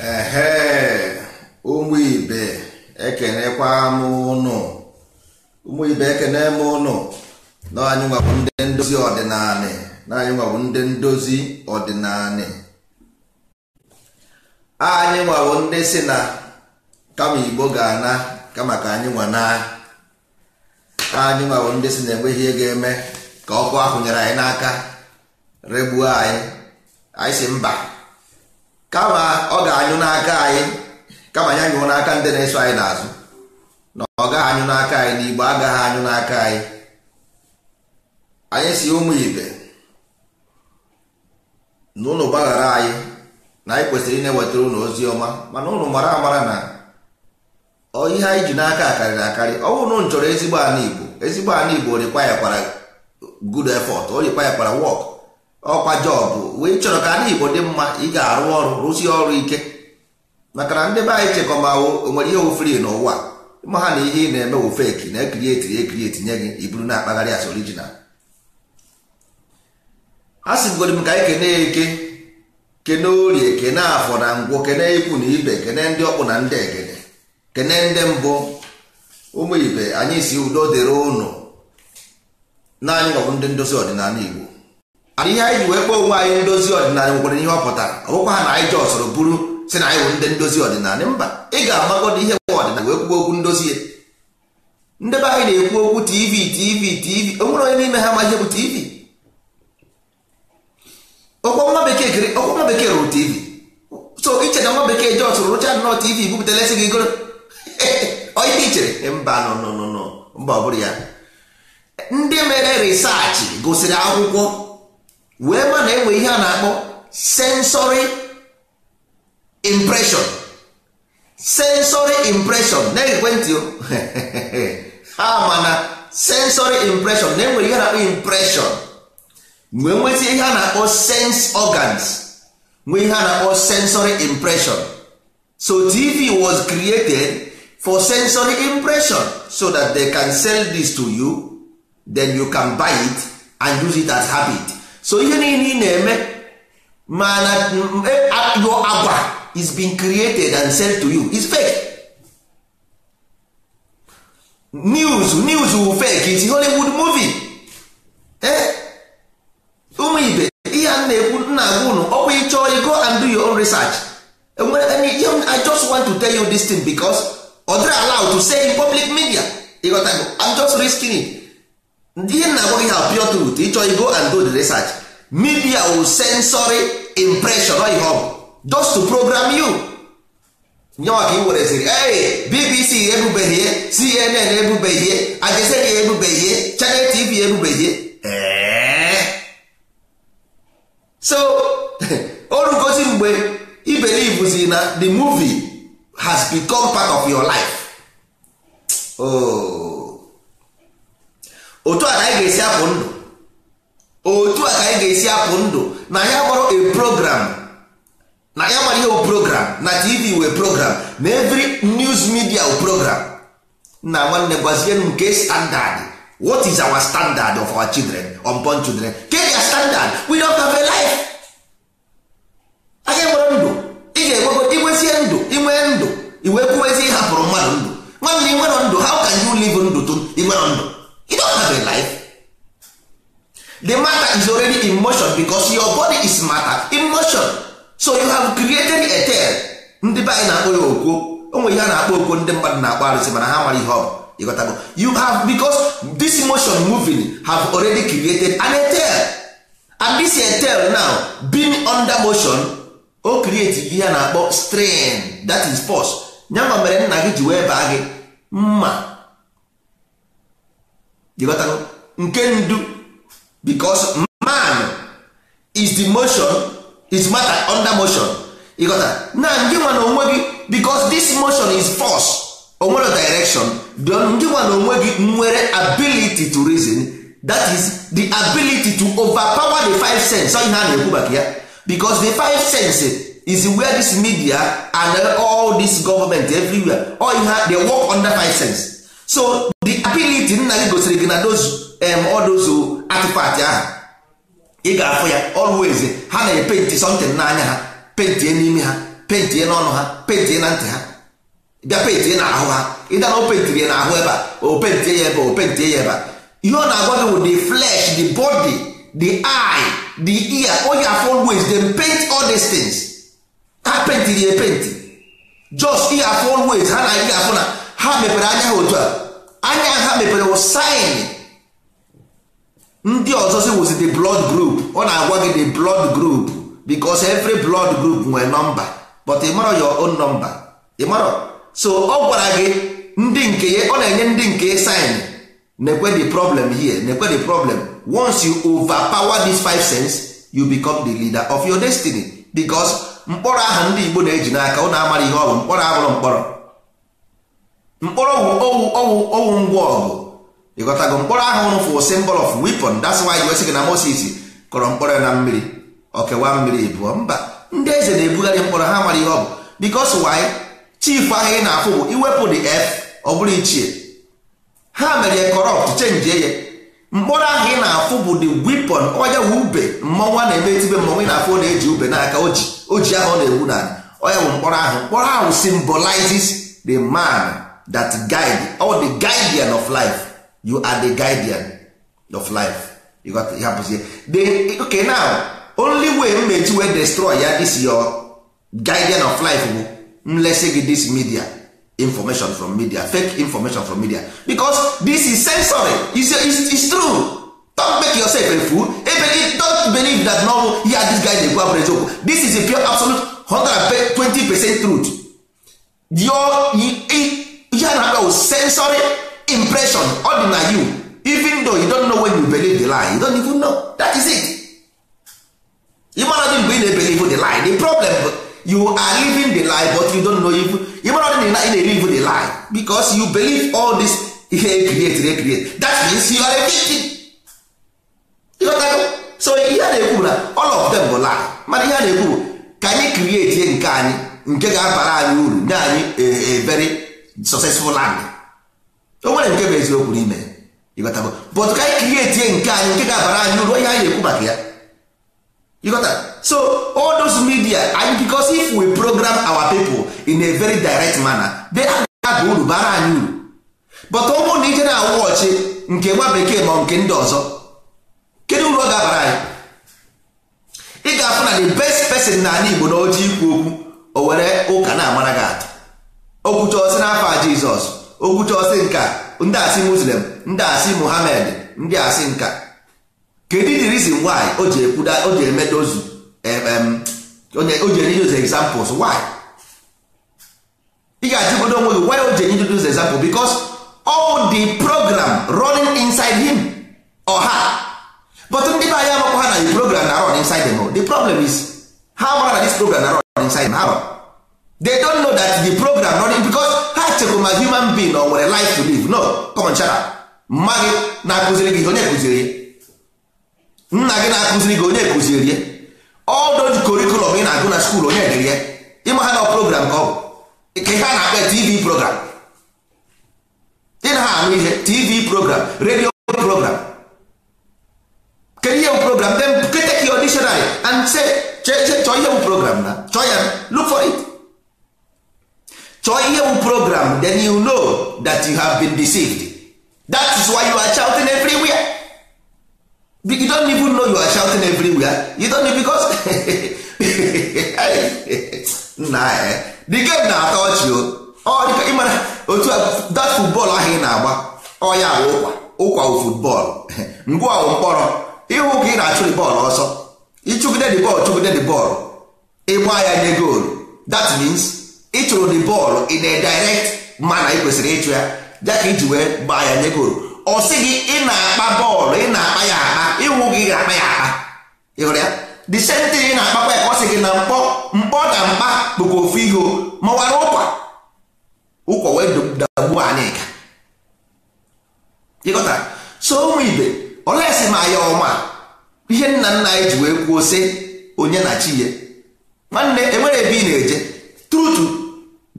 ehe ụmụ ibe ekenekwa m ụnụ ụmụ ibe ekene m ụnụ na anyị nwabụ ndị ndozi ọdịnala na anyị nwabụ ndị ndozi ọdịnala anyị nwabụ ndị si na kama igbo ga-ana kama ka anyị nwa na anyị nwabụ ndị si na enweghị ego eme ka ọkụ ahụ nyere anyị n'aka regbuo anyị anyị si mba kama ọ ga-anyụ n'aka anyị kama ya nyụọ n'aka ndị na-eso anyị n'azụ na ọ gaghị anyụ n'aka anyị na igbo agaghị anyụ n'aka anyị anyị si ụmụ ibe na ụlọ gbaghara anyị na anyị kwesịrị ị na-ewetara ụlọ ozi ọma mana ụlọ mara amara na ihe anyị ji n'aka akarịrị akarị ọ bụrụ na chọrọ ezigbo ala igbo ezigbo ala igbo orikwa ya kwara efọt o orikwa ya kwara ọkwa jọbụ wee chọrọ ka ndị Igbo dị mma ị ga-arụ ọrụ rụzie ọrụ ike maka na ndị be anyị chekọmawo onwere ihe oferi n'ụwa ma ha na ihe ị na-eme wụ feki na ekirieti ekirieti nye gị iburu na-akpagharị as orijinal a sịgoro m ka anyị kene eke kene orie kene afọ na ngwụ kene ikwu na ibe kene ndị ọkpụ na ndị egede kene ndị mbụ ụmụ ibe anyị si udo dịrị ụnụ na anyị ndị ndozi ọdịnala Igbo ihe anyị ji wee kpọọ onwe anyị ndozi ọdịnala nwekwara ihe ọ pụtara ọ ha na anyị jọọ soro bụrụ si na anyị bụ ndị ndozi ọdịnala mba ị ga-amagọdo ihe nwa ọdịnala wee kwuo okwu ndozi ya ndebe anyị na-ekwu okwu tv tv tv o nwere onye n'ime ha ma ihe bụ tv ọkwa nwa bekee kiri ọkwa nwa bekee rụrụ tv so iche na nwa bekee jọọ soro rụcha nnọọ tv bupụtara esi gị goro onye ichere e, mba nọ nọ nọ mba ọ bụrụ ya ndị mere risaachị gụsịrị akwụkwọ wee ma na enwe ihe a na-akpọ sensory impression sensory impression na ekwentị ha ma na sensory impression na enwere ihe na-akpọ impression nwee nweta ihe a na-akpọ sense organs nwee ihe a na-akpọ sensory impression so tv was created for sensory impression so that they can sell this to you then you can buy it and use it as habit so ihe niile ị na-eme mana eh, your agwa is being created and sent to you is fake news news will fake is Hollywood movie eh ụmụ ibe ihe a na-ekwu nna agwa unu ọkwa ị chọọ go and do your own research e I just want to tell you this thing because ọ dịrị allowed to say in public media ịghọtago I'm just risking it ndị na agwa gị ha pure truth ịchọ go and do the research media will sensory impression ọ ihe ọ just to program you nyewa ka ị were sịrị ee bbc ebubeghị ihe cnn ebubeghị ihe ajezeri ebubeghị ihe channel tv ebubeghị ihe so o rugozi mgbe ibelivuzi na the movie has become part of your life oh. otu a ka anyị ga-esi apụ ndụ otu a ka anyị ga-esi apụ ndụ na ya gbara a program na ya gbara ihe program na tv wee program na every news media o program na nwanne gwazie nke standard what is our standard of our children unborn children ke ya standard we don't have a life aga enwere ndụ ị ga-enwego igwezie ndụ igwe ndụ iwee kwuwezi ịhapụrụ mmadụ ndụ nwanne ị nwere ndụ how can you live ndụ to ị nwere ndụ you don't have a life the matter is already in motion because your body is matter in motion so you have created a tail ndị be anyị na-akpọ ya okwo onwe ihe a na-akpọ okwo ndị mmadụ na-akpọ arụsị mana ha mara ihe ọ bụ you have because this motion moving have already created an etel and this etel now being under motion o create ihe a na-akpọ strain that is force nyama mere nna gị ji wee baa gị mma ịghọtago nke ndu because man is the motion is matter under motion ịghọta na ndị nwa na onwe gị because this motion is force onwere direction ndị nwa na onwe gị nwere ability to reason that is the ability to overpower the five sense ihe a na-ekwu maka ya because the five sense is where this media and all this government everywhere all ihe they work under five sense so the ability nna gị gosiri gị na those um, odozu uh, artifact ahụ ị ga-afụ ya always ha na-epenti something n'anya ha pentie n'ime ha pentie n'ọnụ ha pentie na ntị ha bịa pentie na ahụ ha ịda na o ya na ahụ ebe a o ya ebe o pentie ya ebe a ihe ọ na-agwa gị bụ the flesh the body the eye the ear onye afọ always dem paint all these things ha pentiri ya epenti just ihe afọ always ha na ihe afọ na ha mepere anya ha otu a anya ha mepere saịn ndị ọzọ si wuzi the blood group ọ na-agwa gị the blood group because every blood group nwere nọmba but ịmarọ your own number ịmarọ so ọ gwara gị ndị nke ya ọ na-enye ndị nke ya saịn the problem here nekwe the problem once you overpower these five cents you become the leader of your destiny because mkpọrọ aha ndị Igbo na-eji n'aka ọ na-amara ihe ọ bụ mkpọrọ abụrụ mkpọrọ mkpọrọ bụ owu owu owu ngwa ọgụ ịghọtago mkpọrọ ahụ ụrụ fụ symbol of weapon that's why you sị na Moses kọrọ mkpọrọ na mmiri ọkewa mmiri bụọ mba ndị eze na-ebugharị mkpọrọ ha mara ihe ọ bụ because why chief ahụ ị na-afụ bụ iwepụ the f ọ bụrụ ichie ha mere ya corrupt chenji ya mkpọrọ ahụ ị na-afụ bụ the weapon onye wu ube mmọnwa na-eme etibe mmọnwa ị na-afụ na-eji ube n'aka oji oji ahụ ọ na-ewu na onye bụ mkpọrọ ahụ mkpọrọ ahụ symbolizes the man that guide all the guardian of life you are the guardian of life you got to hapụzie the okay now only way mmechi wey destroy ya this your guardian of life bụ mlesi gị this media information from media fake information from media because this is sensory is is true don't make yourself a fool ebe don't believe that no ya this guy dey go abụrụ eziokwu this is a pure absolute 120 percent truth your that sensory impression ọ dị na you even though you don't know when you believe the lie you don't even know that is it ịmara dị mgbe ị na-ebelive the lie the problem you are living the lie but you don't know if ịmara dị na ị na-elive the lie because you believe all this ihe ekriet ekriet that means you are a victim so ihe a na-ekwu na all of them bụ lie mana ihe na-ekwu bụ ka anyị krieti nke anyị nke ga-abara anyị uru nye anyị ebere successful land o nwere nke bụ eziokwu n'ime ịghọta but ka anyị krieti nke anyị nke ga-abara anyị uru ihe anyị ekwu maka ya ịghọta so all those media anyị because if we program our people in a very direct manner they ga-aba uru bara anyị uru but ọ bụrụ na ije na awụghọchi nke nwa bekee ma nke ndị ọzọ kedu uru ọ ga-abara anyị ị ga-afụ na the best person na anyị Igbo na oji ikwu okwu o were ụka na-amara gị atụ okwuchọsị n'afọ a jizọs okwuchọsị nka ndị asị muslim ndị asị muhammad ndị asị nka kedu the reason why o ji ekwuda o ji eme dozu o ji enye dozu examples why ị ga-ajụgodo onwe gị why o ji enye dozu example because all the program running inside him or her but ndị be anyị amakwa ha na the program na run inside them the problem is ha mara na this program na run inside them they don't know that the program running because ha chekwuru my human being or nwere life to live no konchara mma gị na-akụziri gị onye kụziri nna gị na-akụziri gị onye kụziri ye all those curriculum ị na-agụ na skuul onye dere ya ịma ha na program ka ọ bụ ka ha na-akpa tv program ị na ha anụ ihe tv program radio program kedu ihe bụ program then take your dictionary and say chọọ ihe bụ program na chọọ ya look for it chọọ ihe program then you know that you have been deceived that is why you are shouting everywhere you don't even know you are shouting everywhere you don't know because nna eh. the game na-atọ ọchị ịmara otu that football ahụ ị na-agba ọ ya bụ ụkwa ụkwa football ngwa ọwụ mkpọrọ ịhụ ka ị na-achụ the ball ọsọ ịchụgide the ball chụgide the ball ịgba ya nye goal that means ịtụrụ the bọọlụ in a direct mana ị kwesịrị ịchụ ya ya ka iji wee gbaa ya nye goolu ọ sị gị ị na-akpa bọọlụ ị na-akpa ya akpa ịnwụ gị na akpa ya akpa ịhụrụ ya the same thing ị na-akpakwa ya ọ sị gị na mkpọ mkpọ na mkpa bụkwa ofu ihe mawara ụkwa ụkwa wee dagbuo anyị ka ịghọta so ụmụ ibe olesi ma ya ọma ihe nna nna anyị ji wee kwuo sị onye na chi ya nwanne enwere ebe ị na-eje trutu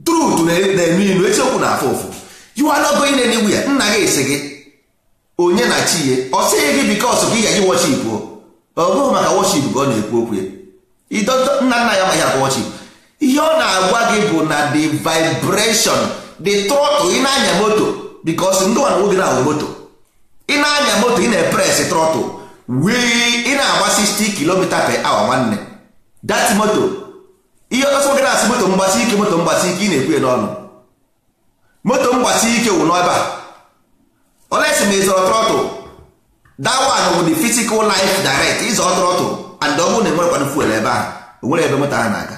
truth na-eme e, ilu eziokwu na afụ ụfụ you are not going ya nna gị esi gị onye na chi ya ọ sịghị gị because ka ị gaji worship ọ bụghị maka worship ka ọ na-ekwu okwu ya nna nna ya amaghị akwa worship ihe ọ na-agwa gị bụ na the vibration the trọtụl ị na-anya moto because ndị nwana nwoge na-awụ moto ị na-anya moto ị na-epres trọtụl wii ị na agba 60 km per hour nwanne dat moto ihe ọsọ gị na-asị moto mgbasi ike moto mgbasi ike ị na-ekwu n'ọnụ moto mgbasi ike wụ n'ebe olesi ma ịzọrọ trọtụl dawan bụ the physical life direct ịzọ trọtụl and ọ bụrụ na enwerekwanụ fuel ebe a nwere ebe moto a na-aga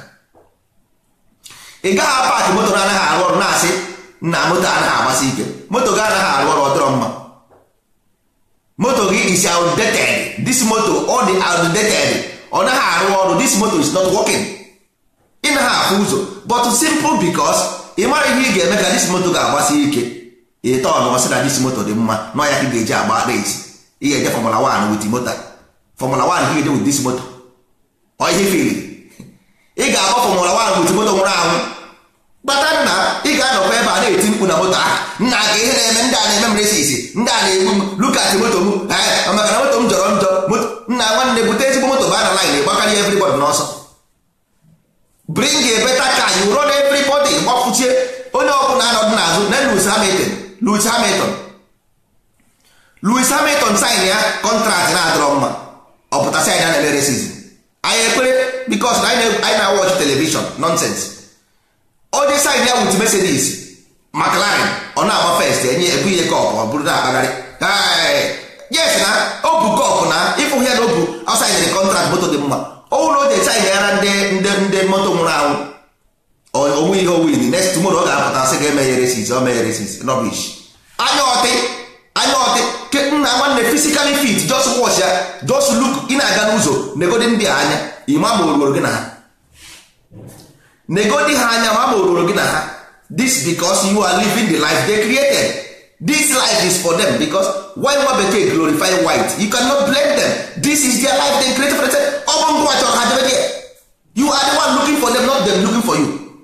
ị gaghị paakị moto na anaghị arụ ọrụ na-asị na moto anaghị agbasi ike moto gị anaghị arụ ọrụ ọ mma moto gị is outdated this moto ọ dị outdated ọ naghị arụ ọrụ this moto is not working ime ha afụ ụzọ but simple because ị mara ihe ị ga-eme ka dis moto ga-agbasi ike ịta ọnụ ọsị na dis moto dị mma nọ ya ka ị ga-eji agba reti ị ga-eje fọmụla 1 wit moto fọmụla 1 ka ị ga-eje wit moto ọ ihe fili ị ga-agba fọmụla 1 wit nwụrụ anwụ kpata na ị ga-anọkwa ebe a na-eti mkpu na moto ahụ nna ka ihe na-eme ndị a na-eme mresisi ndị a na-egbu m lukati moto m maka na moto m jọrọ njọ nna nwanne bute ezigbo moto ba na lain ịgbakarị everybody n'ọsọ bring a better car you run everybody gbapụchie onye ọbụla anọdụ n'azụ na Lewis Hamilton louis Hamilton louis Hamilton sign ya contract na-adọrọ mma ọpụta sign ya na-emere season anyị ekpere because na anyị na-watch television nonsense onye sign ya with Mercedes McLaren ọ na-agba first enye ebu ihe kọp ọ bụrụ na-akpagharị yes na o bu kọp na ịfụghị ya na o bu outside the contract moto dị mma ọnwụ na o ji eche anyị gara ndị ndị moto nwụrụ anwụ onwe ihe owin next tomorrow ọ ga-apụta sị ga-emegheresisi o megheresisi rubbish anya ọtị anya ọtị ke nna nwanne physically fit just watch ya just look ị na-aga n'ụzọ negodi ndị a anya ịma ma oruoro gị na ha negodi ha anya ma ma oruoro gị na ha this because you are living the life they created this life is for them because white nwa bekee glorify white you cannot blame them this is their life they create for them open go ngwa your ha debe there you are the one looking for them not them looking for you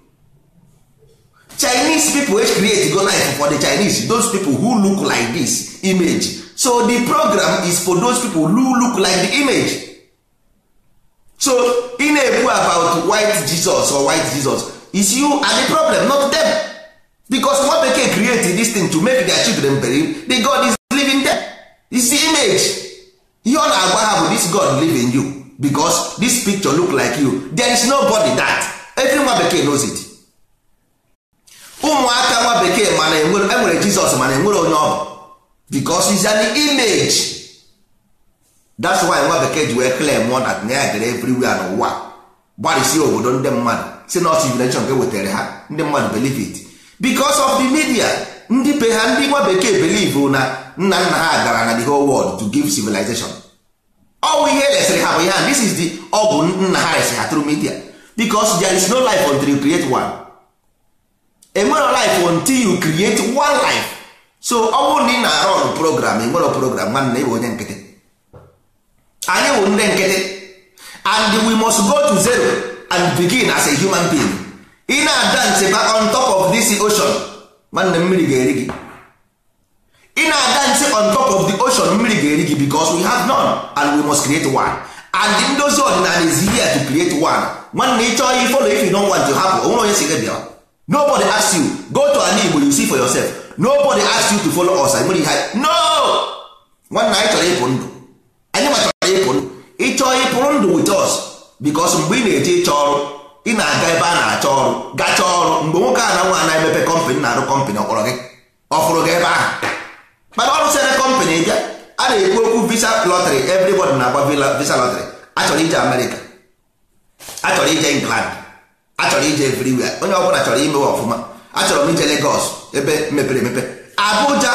chinese people wey create go life for the chinese those people who look like this image so the program is for those people who look like the image so ị na-ekwu about white jesus or white jesus is you and the problem not them. because nwa bekee create this thing to make their children believe the god is living them is the image ihe ọ na-agwa ha bụ this god living you because this picture look like you there is nobody that every nwa bekee knows it ụmụaka nwa bekee mana enwere e jizọs mana enwere onye ọ bụ because is an image that's why nwa bekee ji wee claim mụọ that na ya gara everywhere n'ụwa gbarịsie obodo ndị mmadụ si na civilization ka e wetara ha ndị mmadụ believe it because of the media ndị be ha ndị nwa bekee believe na nna nna ha gara na the whole world to give civilization ọwụ ihe resịrị ha bụ ihe this is the ọ bụ nna ha resịrị ha through media because there is no life until you create one enwere life until you create one life so ọ bụrụ na ị na-arụ ọrụ program enwere program nwanne ịbụ onye nkịtị anyị bụ ndị nkịtị and we must go to zero and begin as a human being ị na-adance back on top of this ocean nwanne mmiri ga-eri gị ị na-adance on top of the ocean mmiri ga-eri gị because we have none and we must create one and the ndozi ọdịnala is here to create one nwanne ị chọọ ifolo if you don want to hapụ onwere onye si gị bịa nobody ask you go to an igbo you see for yourself nobody ask you to follow us nwere ihe no nwanne anyị chọrọ ịpụ ndụ anyị ma chọrọ ịpụ ndụ ị ịpụrụ ndụ with us because mgbe ị na-eje ịchọ ọrụ ị na-aga ebe a na-achọ ọrụ gacha ọrụ mgbe nwoke a na nwa na-emepe kọmpanị na-arụ kọmpanị ọkpọrọ gị ọ gị ebe ahụ mana ọrụ sere kọmpanị bịa a na-ekwu okwu visa lọtrị everybody na-agba visa lọtrị achọrọ ije amerịka achọrọ ije england achọrọ ije everywhere onye ọbụla chọrọ imewe ọfụma achọrọ m ije legos ebe mepere emepe abuja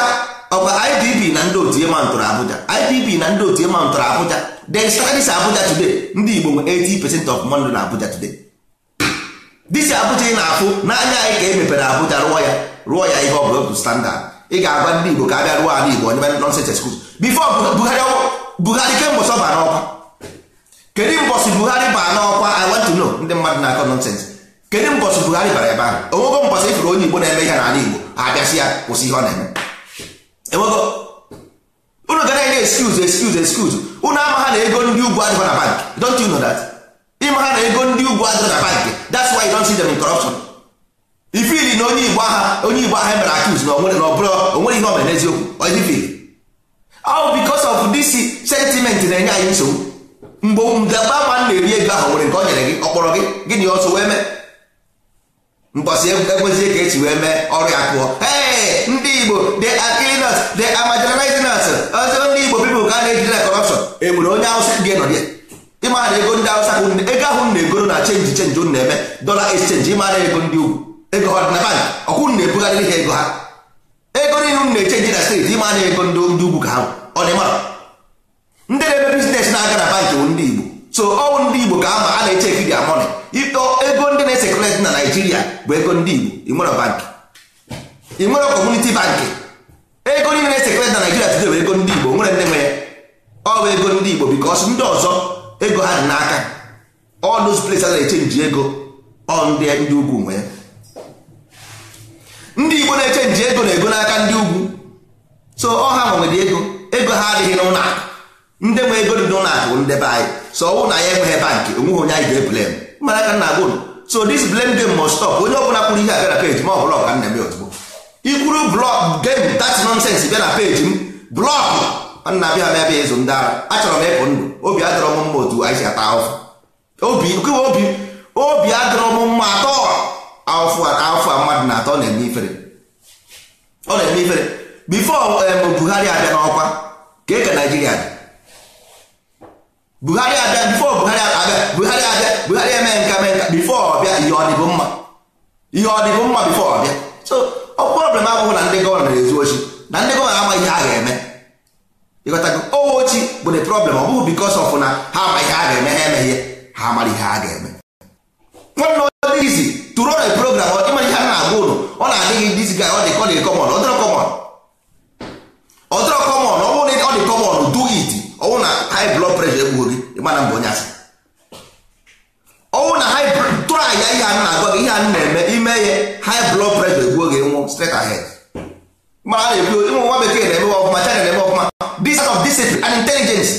ọkwa idb na ndị otu emantụrụ abuja idb na ndị otu emantụrụ abuja they studies abuja today ndị igbo nwe 80 percent of money na abuja today dịsi abụcha ị na-afụ n'anya anyị ka e mepere Abuja rụọ ya rụọ ya ihe ọ bụla otu standard ị ga-agwa ndị Igbo ka a bịa rụọ ala Igbo onye nonsense excuse bifo Buhari kemgbe ọsọ baa n'ọkwa kedu mbọsị Buhari baa n'ọkwa I want to know ndị mmadụ na-akọ nonsense kedu mbọsị Buhari bara ebe ahụ onwego mbọsị ifere onye Igbo na-eme ihe n'ala Igbo abịasị ya kwụsị ihe ọ na-eme enwego unu ga na-enye excuse excuse excuse unu ama ha na ego ndị ugwu adịghị bank don't you know that ndị ma na ego ndị ugwu adịrị na bank that's why you don't see them in corruption ifili na onye igbo aha onye igbo aha mere accuse na onwere na ọbụrụ onwere ihe ọmere n'eziokwu ojifili oh, all because of this sentiment na-enye anyị nsogbu mgbe mdagba ma na-eri ego ahụ nwere nke o nyere gị ọkpọrọ gị gịnị ọsọ wee mee mbọsị e, ekwezie ka esi wee mee ọrụ ya kụọ ndị igbo they are the us they are marginalizing us ọzọ ndị igbo people ka a na-ejide na corruption e nwere onye awụsa nọ dị. ịmara na ego ndị awụsa ego ahụ m na-egoro na chenji chenji ụnụ na-eme dọla exchange ịmara ego ndị ugwu ego ha na bank ọkwụ ụnụ na-ebugharịrị ha ego ha ego niile ụnụ na-echenji na steeti ịmara na ego ndị ndị ugwu ka ha ọ dị mara ndị na-eme biznes na-aga na bankị bụ ndị igbo so ọwụ ndị igbo ka ama a na-echeki eche dia mọni ego ndị na-esekreti na naijiria bụ ego ndị igbo ịnwere bank ịnwere kọmuniti bankị ego niile na-esekreti na naijiria tude bụ ego ndị igbo nwere ndị nwe ya ọ bụ ego ndị igbo bikọs ndị ọzọ ego ha dị n'aka all those places na-echenji ego ọ ndị ndị ugwu nwe ndị igbo na-echenji ego na ego n'aka ndị ugwu so ọha ha nwere ego ego ha adịghị n'ụlọ akụ ndị nwe ego dị n'ụlọ akụ ndị be anyị so ọnwụ na ya enweghị bank onweghị onye anyị ga-eblem mana aka nna gụrụ so this blame game must stop onye ọbụla kwuru ihe abịa na peji ma ọ bụla ọka nna m ozugbo ikwuru blọk game that's nonsense bịa na peji m blọk nna abịa m ebe ịzụ ndị ara achọrọ m ịpụ ndụ obi adịrọ m mma otu anyị si ata ahụfụ obi obi obi adịrọ m mma atọ ahụfụ ahụfụ a mmadụ na atọ na-eme ifere ọ na-eme ifere bifo Buhari abịa n'ọkwa ka eke Naijiria dị Buhari abịa bifo Buhari abịa Buhari abịa Buhari eme nka mee nka bifo ọbịa ihe ọ mma ihe ọ mma bifo ọbịa so ọ problem abụghị na ndị gọvanọ na-ezu ochi na ndị gọvanọ amaghị ihe a ga-eme ịghọtago owochi oh, bụ the problem ọ bụghị bikos ọf na ha ama ihe a ga-eme ha eme ihe ha amara ihe ha ga-eme nwanne ọdị izi tụrụ ọrịa program ịma ihe a na-agwa ụlụ ọ na-adịghị dizi ga ọ dị kọ dị kọmọn ọdịrọ kọmọn ọdịrọ kọmọn ọ bụrụ na ọ dị kọmọn du it ọnwụ na high blood pressure egbughị gị ịmana mgbe onye asị ọnwụ na high tụrụ ahịa ihe a na-agwa gị ihe a na-eme ime ihe high blood pressure egbuo gị nwụ straight ahead mara na ebido ụmụ nwa bekee na-eme ọfụma China na-eme ọfụma this of discipline and intelligence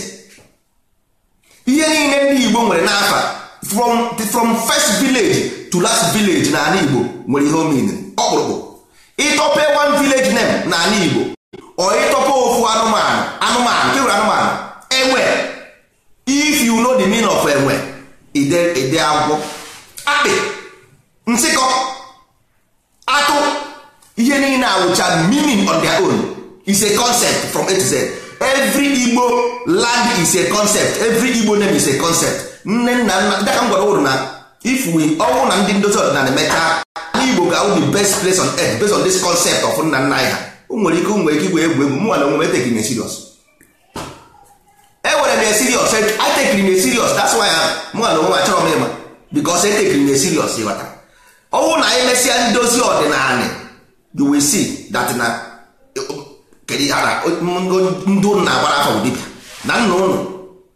ihe niile ndị Igbo nwere n'afa from from first village to last village na ala Igbo nwere ihe omen ọkpụrụkpụ ịtọpe one village name na ala Igbo ọ ịtọpe ofu anụmanụ anụmanụ kewere anụmanụ enwe if you know the name of enwe ide ide agwọ akpị nsịkọ ihe niile awụcha meaning on their own is a concept from A to Z every Igbo land is a concept every Igbo name is a concept nne nna nna dịka m gwara ụrụ na if we ọnwụ na ndị ndozi ọdịnala emecha Igbo ga the best place on earth based on this concept of nna nna ya. ha nwere ike nwere ike igwe egwu egwu mụ na onwe etekiri na serious ewere m ya serious e, atekiri na serious that's why mụ na onwe achọrọ m ịma because etekiri na serious ịghọta ọnwụ na anyị mesịa ndozi ọdịnala you will see that na kedu ihe na ndị ụnụ na-agbara afọ bụ na nna ụnụ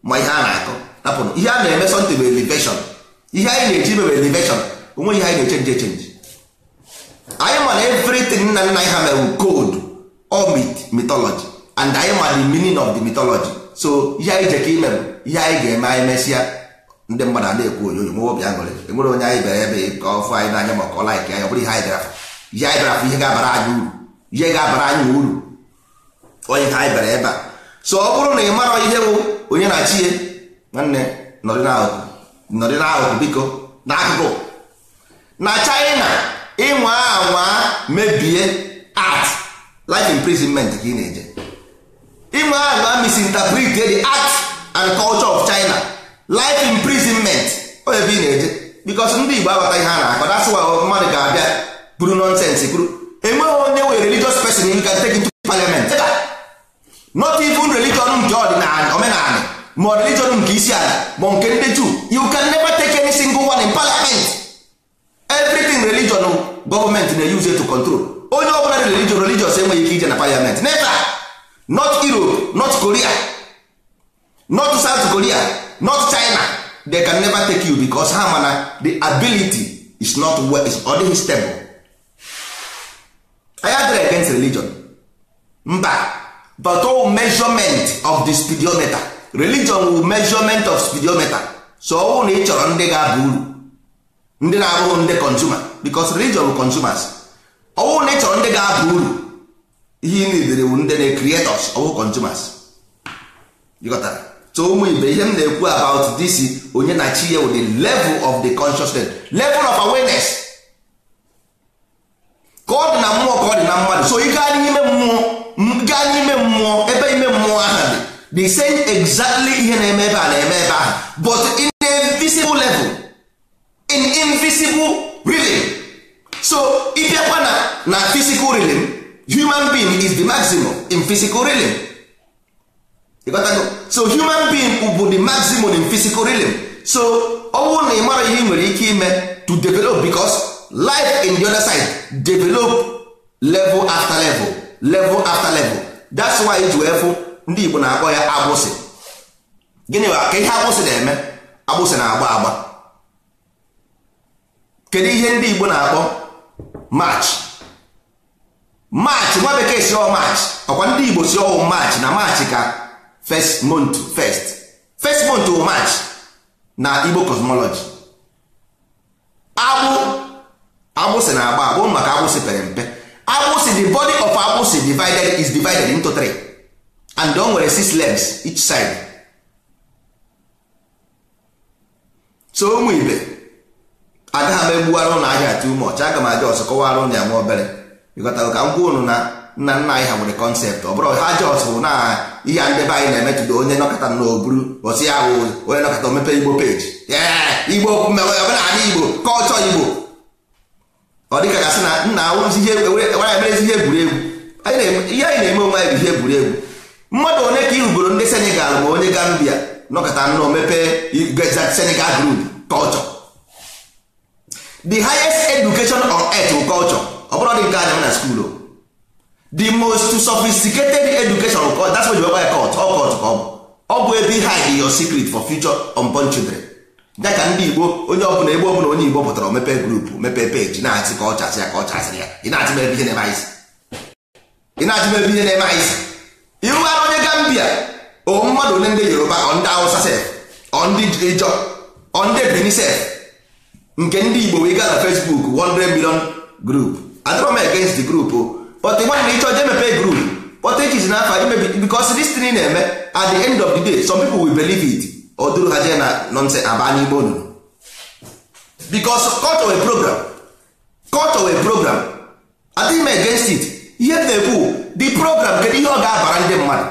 ma ihe a na-akọ napụrụ ihe a na-eme sọntị bụ eleveshọn ihe anyị na-eji ime bụ eleveshọn onwe ihe anyị na-echenji echenji anyị ma na evritin nna nna anyị ha mere koodu or mitology and anyị ma the meaning of the mitology so ihe anyị ji ka ime bụ ihe anyị ga-eme anyị mesịa ndị mmadụ a na-ekwu onyonyo nwe obi aṅụrị enwere onye anyị bịara ebe ka ọ fụ anyị n'anya ma ọ kọla anyị ka ya ọ bụrụ ihe anyị afọ. Ya anyị bịara afọ ihe ga-abara anyị uru ihe ga-abara anyị uru onye ha anyị bịara ebe a so ọ bụrụ na ị mara ihe bụ onye na-achị ya nwanne nọrị n'akụkụ biko n'akụkụ na China ịnwa anwa mebie art life imprisonment ka ị na-eje ịnwa anwa misinterpret the art and culture of China life imprisonment o ebe ị na-eje because ndị Igbo agbata ihe a na-akọ that's mmadụ ga-abịa kwuru nonsense kwuru enweghị onye were religious person you can take into parliament not even religion nke um ọdịnala omenala ma religion nke um isi ala ma nke ndị Jew you can never take any single one in parliament everything religion um, government na-use to control onye ọbụla religion religious enweghị ike ije na parliament never not Europe not Korea not South Korea not China they can never take you because ha mana the ability is not well, is ọ dịghị stable anyị against religion mba but all oh, measurement of the speedometer religion wu measurement of speedometer so ọ oh, na ị chọrọ ndị ga-aba uru ndị na-abụghị ndị consumer because religion wu consumers ọ oh, na ị chọrọ ndị ga-aba uru ihe ị nidere wu ndị na-creators ọ consumers ịghọtara so ụmụ ibe ihe m na-ekwu about this onye na chi ya wu the level of the consciousness level of awareness ka ọ dị na mmụọ ka ọ dị na mmadụ so ị gaa n'ime mmụọ gaa n'ime mmụọ ebe ime mmụọ ahụ dị the same exactly ihe na-eme ebe a na-eme ebe ahụ but in invisible level in invisible rhythm. so ịbịakwa na na physical rhythm human being is the maximum in physical realm so human being bụ the maximum in physical rhythm. so ọ bụrụ na ị mara ihe ị nwere ike ime to develop because life in the other side develop level after level level after level that's why iji wee fụ ndị Igbo na-akpọ ya agbụsị gịnị ka ihe agbụsị na-eme agbụsị na-agba agba kedu ihe ndị Igbo na-akpọ march march nwa bekee si ọ march ọkwa ndị Igbo si ọ march na march ka first month first first month o march na Igbo cosmology agbụ agbụsị na agba agbụ maka agbụsị pere mpe agbụsị the body of agbụsị divided is divided into three and o nwere six legs each side so ụmụ ibe agaghị m egbuwara ụlọ ahịa too much aga m aja ọzọ kọwara ụlọ ya nwa obere ịghọtara ka m gwa ụnụ na nna nna anyị ha nwere kọnsept ọ bụrụ ha jos bụ na ihe ndebe anyị na-emetụta onye nọkọta na oburu osi ahụ onye nọkọta omepe igbo peji igbo omenala igbo kọlchọ igbo ọ dịka gasị na nna wara emerezi ihe egwuregwu ihe anyị na-eme onwe anyị bụ ihe egwuregwu mmadụ onye ka ihugoro ndị senegal ma onye gambia nọkọta nnọọ mepee senegal group culture the highest education on earth bụ culture ọ bụrụ dị nke anya na skuul the most sophisticated education that's what you call cult ọ bụ ebe in your secret for future unborn children ya ka ndị igbo onye ọbụla ebe ọbụla onye igbo pụtara mepe grupu mepe peji na-atị ka ọ chasị ya ka ọ chasịrị ya ị na-atị mebe ihe na-eme anyị isi ịrụghara onye gambia o mmadụ onye ndị yoruba ọ ndị awụsa sef ọ ndị ijọ ọ ndị ebini nke ndị igbo wee gaa na fesbuk 100 million grup adịrọ m against the group but nwanne ịchọ jee mepe grup but echizi n'afọ imebi because this thing na-eme at the end of the day some people will believe it oduru ha jee na nonse aba n'igbo nụrụ because cut away program cut away program adịghị m against it ihe m na-ekwu the program kedu ihe ọ ga-abara ndị mmadụ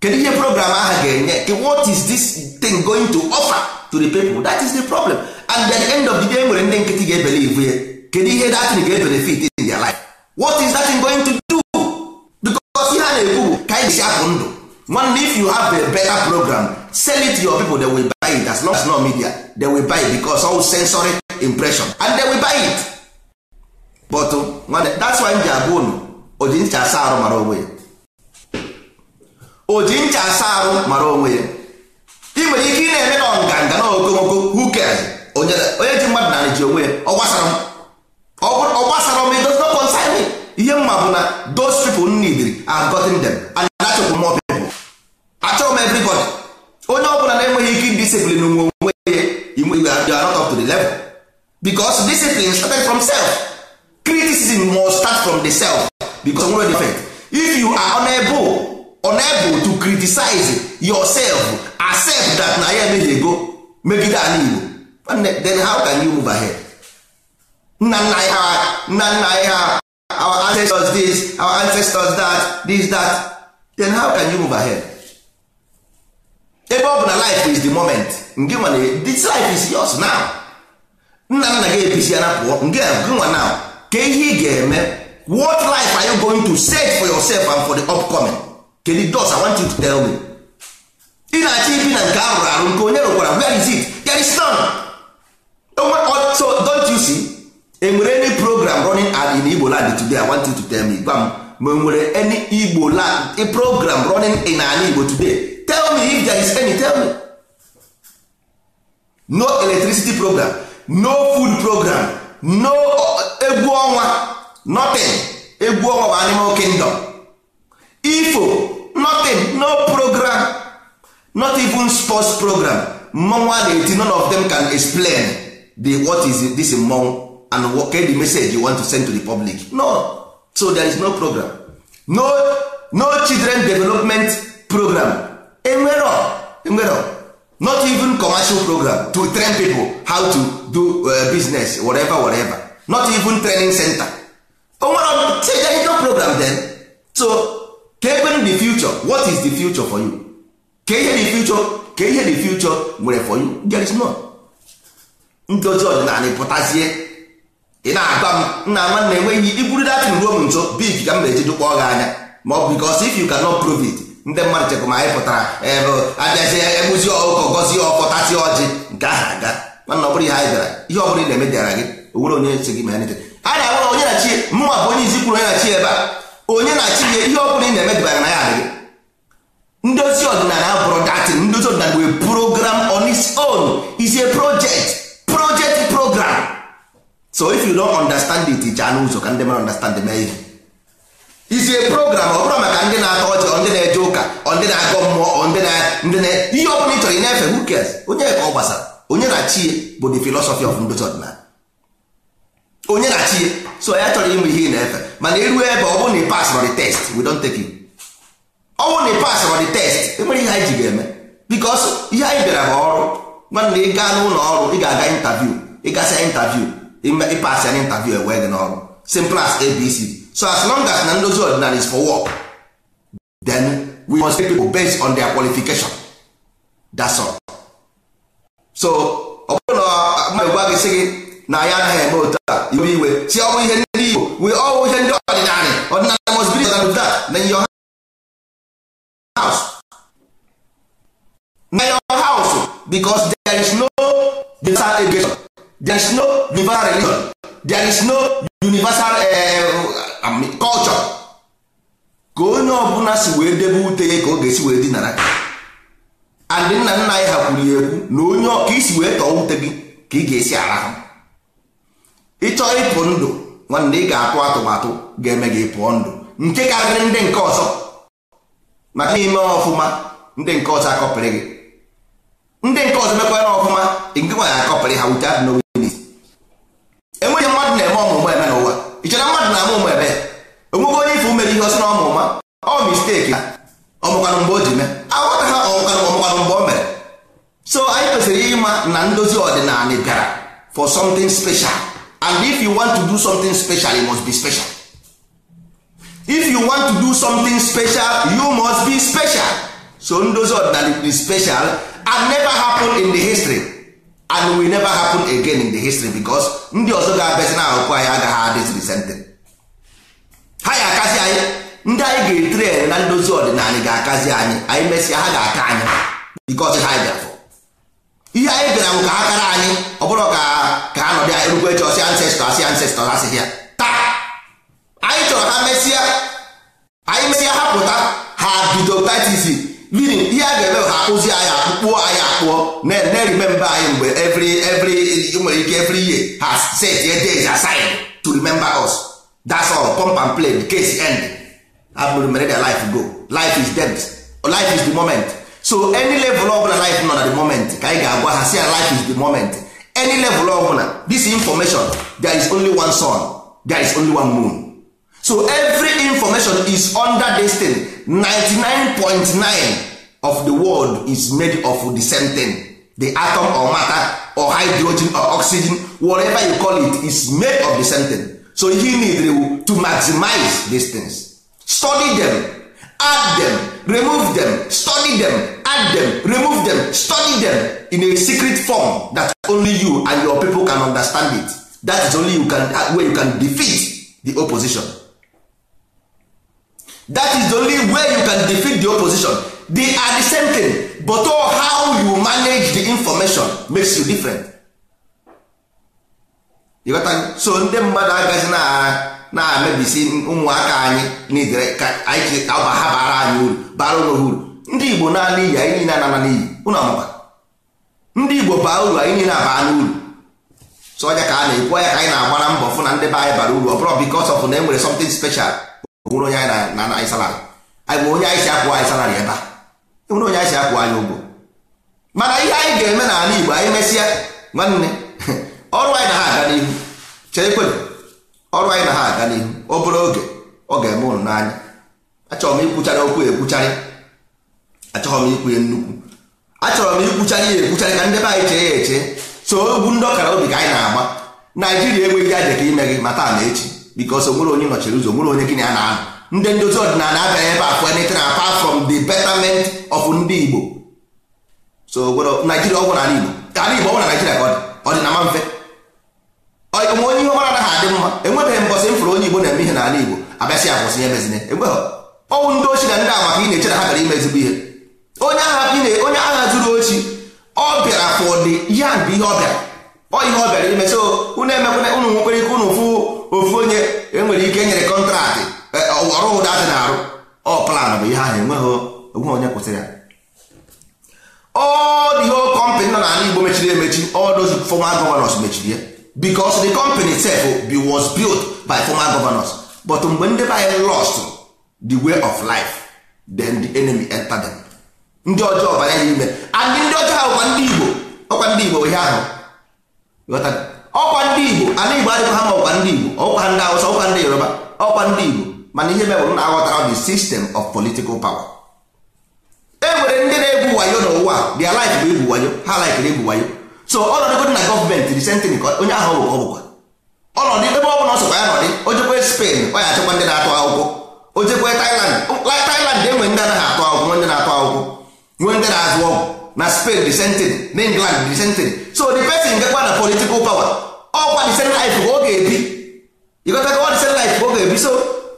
kedu ihe program aha ga-enye what is this thing going to offer to the people that is the problem and at the end of the day e nwere ndị nkịtị ga-ebelivu ya kedu ihe that thing ga-ebenefit in their life what is that thing going to do because ihe a na-ekwu bụ ka anyị si apụ ndụ man if you have a better program sell it to your people they will buy it as long as no media they will buy it because all sensory impression and they will buy it but uh, that's why m ji abụ unu oji ncha asa arụ mara onwe ya oji ncha asa arụ mara onwe ya ị nwere ike ị na-eme na nganga na okomoko who cares onye ji mmadụ narị ji onwe ya ọ gbasara m ihe mma bụ na those people need are gotten them and achọghị m everybody onye ọ bụla na-enweghị ike discipline nwe onwe ya inwe you are not up to di level because discipline start from self criticism must start from the self because nwere different if you are unable unable to criticize yourself accept that na ya emeghị ego megide ala Igbo then how can you move ahead nna nna anyị ha nna nna anyị ha our ancestors this our ancestors that this that then how can you move ahead ebe ọ bụ na life is the moment nke nwere this life is yours now nna nna gị episi ara pụọ nke nwa now ka ihe ị ga-eme what life are you going to set for yourself and for the upcoming kedu dos i want you to tell me ị na-achọ ibi na nke arụrụ arụ nke onye rụkwara where is it there is none so don't you see enwere any program running ad in Igbo land today i want you to tell me gwa m ma enwere any Igbo land program running in ala Igbo today if there is any tell me no electricity program no food program no uh, egwu ọnwa nothing egwu ọnwa bụ animal kingdom ifo nothing no program not even sports program mmọnwụ a na-eti none of them can explain the what is this mmọnwụ and what kind of message you want to send to the public no so there is no program no no children development program enwere enwero not even commercial program to train people how to do uh, business whatever whatever not even training center onwere no program then so ka ekpere the future what is the future for you Ke ihe the future Ke ihe the future nwere for you there is none ọdịna anyị pụtazie ị na-agwa m nna na enweghị iburu datin ruo m nso big ka m na-ejedokpọ gị anya ma ọ bụ because if you cannot prove it ndị mmadụ chekwa ma anyị pụtara ebe eh, abịazi eh, egbuzi ọkụkọ gọzie ọkọ tasi ọjị nke aha aga mana ọ bụrụ ihe anyị bịara ihe ọ bụrụ ị na-eme dịara gị owere onye si gị ma anyị na-agwara onye na chi mụnwa bụ onye izi kwuru onye na chi ebe a onye na chi ihe ọ bụrụ ị na-eme dịbara na ya adịghị ndozi ọdịnala abụrụ datị ndozi ọdịnala wee program on its own is a project project program so if you don't understand it ichaa n'ụzọ ka ndị mara understand mee ihe isi program ọ bụrụ maka ndị na-atọ ọchị ọ ndị na-eje ụka ọ ndị na-agọ mmụọ ọ ndị na ihe ọ bụla ị chọrọ ị na-efe hukes onye ka ọ gbasara onye na chi bụ the philosophy of ndozi ọdịnala onye na chi so ya chọrọ ịnwe ihe ị na-efe mana iruo ebe ọ bụrụ na ị pas the test we don't take you ọ bụrụ na ị pas the test enwere ihe anyị ji ga-eme bikos ihe anyị bịara bụ ọrụ nwanna ị gaa n'ụlọ ọrụ ị ga-aga intaviu ịgasịa intaviu ịpas ya na intaviu ewee gị n'ọrụ simple as abc so as long as na ndozi is for work then we must take people based on their qualification that's all. so ọ bụrụ na mmadụ gwa gị sị gị na anyị anaghị eme otu a iwe iwe si ọnwụ ihe ndị Igbo we all ihe ndị ọdịnala ọdịnala must be to that na your house na your house because there is no universal education there is no universal religion there is no universal uh, kọlchọ ka onye ọbụla si wee debe ute ya ka ọ ga-esi wee dinara andị nna nna anyị ha kwuru ya ekwu na onye ka isi wee tọọ ute gị ka ị ga-esi arahụ ịchọọ ịpụ ndụ nwanne ị ga-atụ atụmatụ ga-eme gị pụọ ndụ nke karịrị ndị nke ọzọ maka ime ọfụma ndị nke ọzọ akọpịrị gị ndị nke ọzọ mekwara ọfụma nke nwaanyị akọpịrị ha without knowing it enweghị mmadụ na-eme ọmụmụ eme n'ụwa ị chere mmadụ na-ama ụmụ ebe onweghe onye ife umere ihe ọsị na ọmụ ụma ọ misteki ha ọmụkwanụ mgbe o ji mee aghọta ha ọmụkwanụ ọmụkwanụ mgbe o mere so anyị kwesịrị ịma na ndozi ọdịnala bịara for something special and if you want to do something special you must be special if you want to do something special you must be special so ndozi ọdịnala be special and never happen in the history and we never happen again in the history because ndị ọzọ ga-abịazi na ahụkwu anyị agaghị adịzi risente ha ya akazi anyị ndị anyị ga-etre na ndozi ọdịnala ga-akazi anyị anyị mesịa ha ga-aka anyị because ha bịafọ ihe anyị bịara nwụ ka ha kara anyị ọ bụrụ ka ka ha nọdị erukwe chọsi ancestor asị ancestor ha sị ya taa anyị chọrọ ha mesịa anyị mesịa ha pụta ha bido tatisi meaning ihe a ga-eme ha akpụzi anyị akpụkpọ anyị akpụọ na-erimemba anyị mgbe every every nwere ike every year ha set a days aside to remember us that's all pump and play the case end abụrụ mere their life go life is dead life is the moment so any level of life nọ na the moment ka anyị ga-agwa ha si life is the moment any level ọbụla this information there is only one sun there is only one moon so every information is under this thing 99.9 of the world is made of the same thing the atom or matter or hydrogen or oxygen whatever you call it is made of the same thing so you need to maximize these things study them add them remove them study them add them remove them study them in a secret form that only you and your people can understand it that is only you can where you can defeat the opposition that is the only way you can defeat the opposition the are the same thing but all how you manage the information makes you different you so ndị mmadụ agaghị na-amebisi ụmụaka anyị n'idere ka anyị ha bara anyị uru bara ụlọ uru ndị igbo naanị iyi anyị niile anana n'iyi ụlọ amụba ndị igbo baa uru anyị niile abaa n'uru so ọnya ka a na-ekwu ọnya ka anyị na-agbara mbọ fụ na ndị be anyị bara uru ọ bụrụ because of na enwere something special kwụrụ onye anyị na anyị salarị anyị bụ onye anyị si akwụ anyị salarị ebe a enwere onye anyị si akwụ anyị ụgwọ mana ihe anyị ga-eme n'ala Igbo anyị mesịa nwanne ọrụ anyị na ha aga n'ihu chekwe ọrụ anyị na ha aga n'ihu obere oge ọ ga-eme ụnụ n'anya achọrọ m ikwuchara okwu ekwucharị achọghị m ikwu ya nnukwu achọrọ m ikwucharị ya ekwucharị ka ndị anyị chee ya eche so ogwu ndị ọkara obi ka anyị na-agba Naijiria enweghị aja ime gị ma taa na echi because onwere onye nọchiri ụzọ onwere onye gịnị a na ndị ndozi ọdịnala abịaghị ebe afọ anything apart from the betterment of ndị Igbo so Naijiria ọgwụ n'ala Igbo ala Igbo ọgwụ na Naijiria ka ọ dị mfe onwe onye ihe ọmara anaghị adị mma enwebeghị mbọsị m fụrụ onye Igbo na-eme ihe n'ala Igbo abịasị akwụsị ya mezinye enweghị ọnwụ ndị ochi na ndị amaka ị na-eche na ha gara ime ezigbo ihe onye agha zuru ochi ọ bịara fọdụ ya bụ ihe ọ bịara ọ ihe ọ bịara ime unu emekwana unu nwekwere ike unu fụ ofu onye enwere ike nyere kọntraktị e, ọrụ ụda dị na-arụ ọ plan bụ ihe ahụ enweghị onwe onye kwụsịrị ya all the whole company nọ n'ala Igbo mechiri emechi all those former governors mechiri ya because the company bi wos built by fọma gọvanọs. Bọt mgbe ndị be anyị lost the way of life then the enemy entered them ndị ọjọọ bara ya n'ime and ndị ọjọọ ha bụkwa ndị Igbo ọkwa ndị Igbo ihe ahụ ọkwa ndị Igbo Ala Igbo adịghị ha ma ọkwa ndị Igbo ọkwa ndị Awụsa ọkwa ndị Yoruba ọkwa ndị Igbo mana ihe mebụrụ na aghọtara the system of political power e nwere ndị na-egwu wayo n'ụwa their life bụ egwu wayo ha likere egwu wayo so ọnọdụ dị na gọọmenti risentịn ka onye ahụ bụ ọbụkwa ọnọdụ ebe ọ bụla ọsọkwa ya nọdị ojekwe Spain ọ ya achịkwa ndị na-atụ akwụkwọ ojekwe Thailand Thailand enwe ndị anaghị atụ akwụkwọ nwee ndị na-atụ akwụkwọ nwee ndị na-azụ ọgwụ na spain the same thing na england the same thing so the person gekwa na political power ọkwa oh, the same life ka ọ ga-ebi ịgotagowa the same life ka ọ ga-ebi so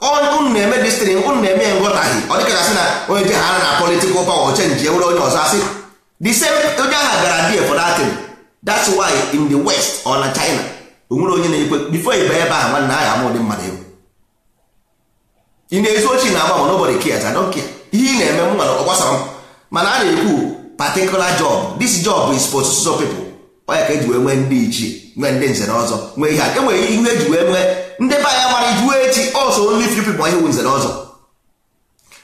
unu na-eme destiny unu na-eme ya nghọtaghị ọ dịka gasị na onye ji ha na political power chenji ewere onye ọzọ asị the same onye agha gara die for that thing that's why in the west or na china o onye na-ekwe before ịba ebe ahụ nwanne agha amụ ụdị mmadụ egwu ị na-ezu ochi na agba ma nobody cares I don't care ihe ị na-eme m nwere ọ gbasara m mana a na-ekwu particular job this job is for so people onye ka eji wee nwee ndị ichie nwee ndị nze na ọzọ nwee ihe a enwere ihe eji wee nwee ndị be anya mara ijuwe echi also only few people ihe nze na ọzọ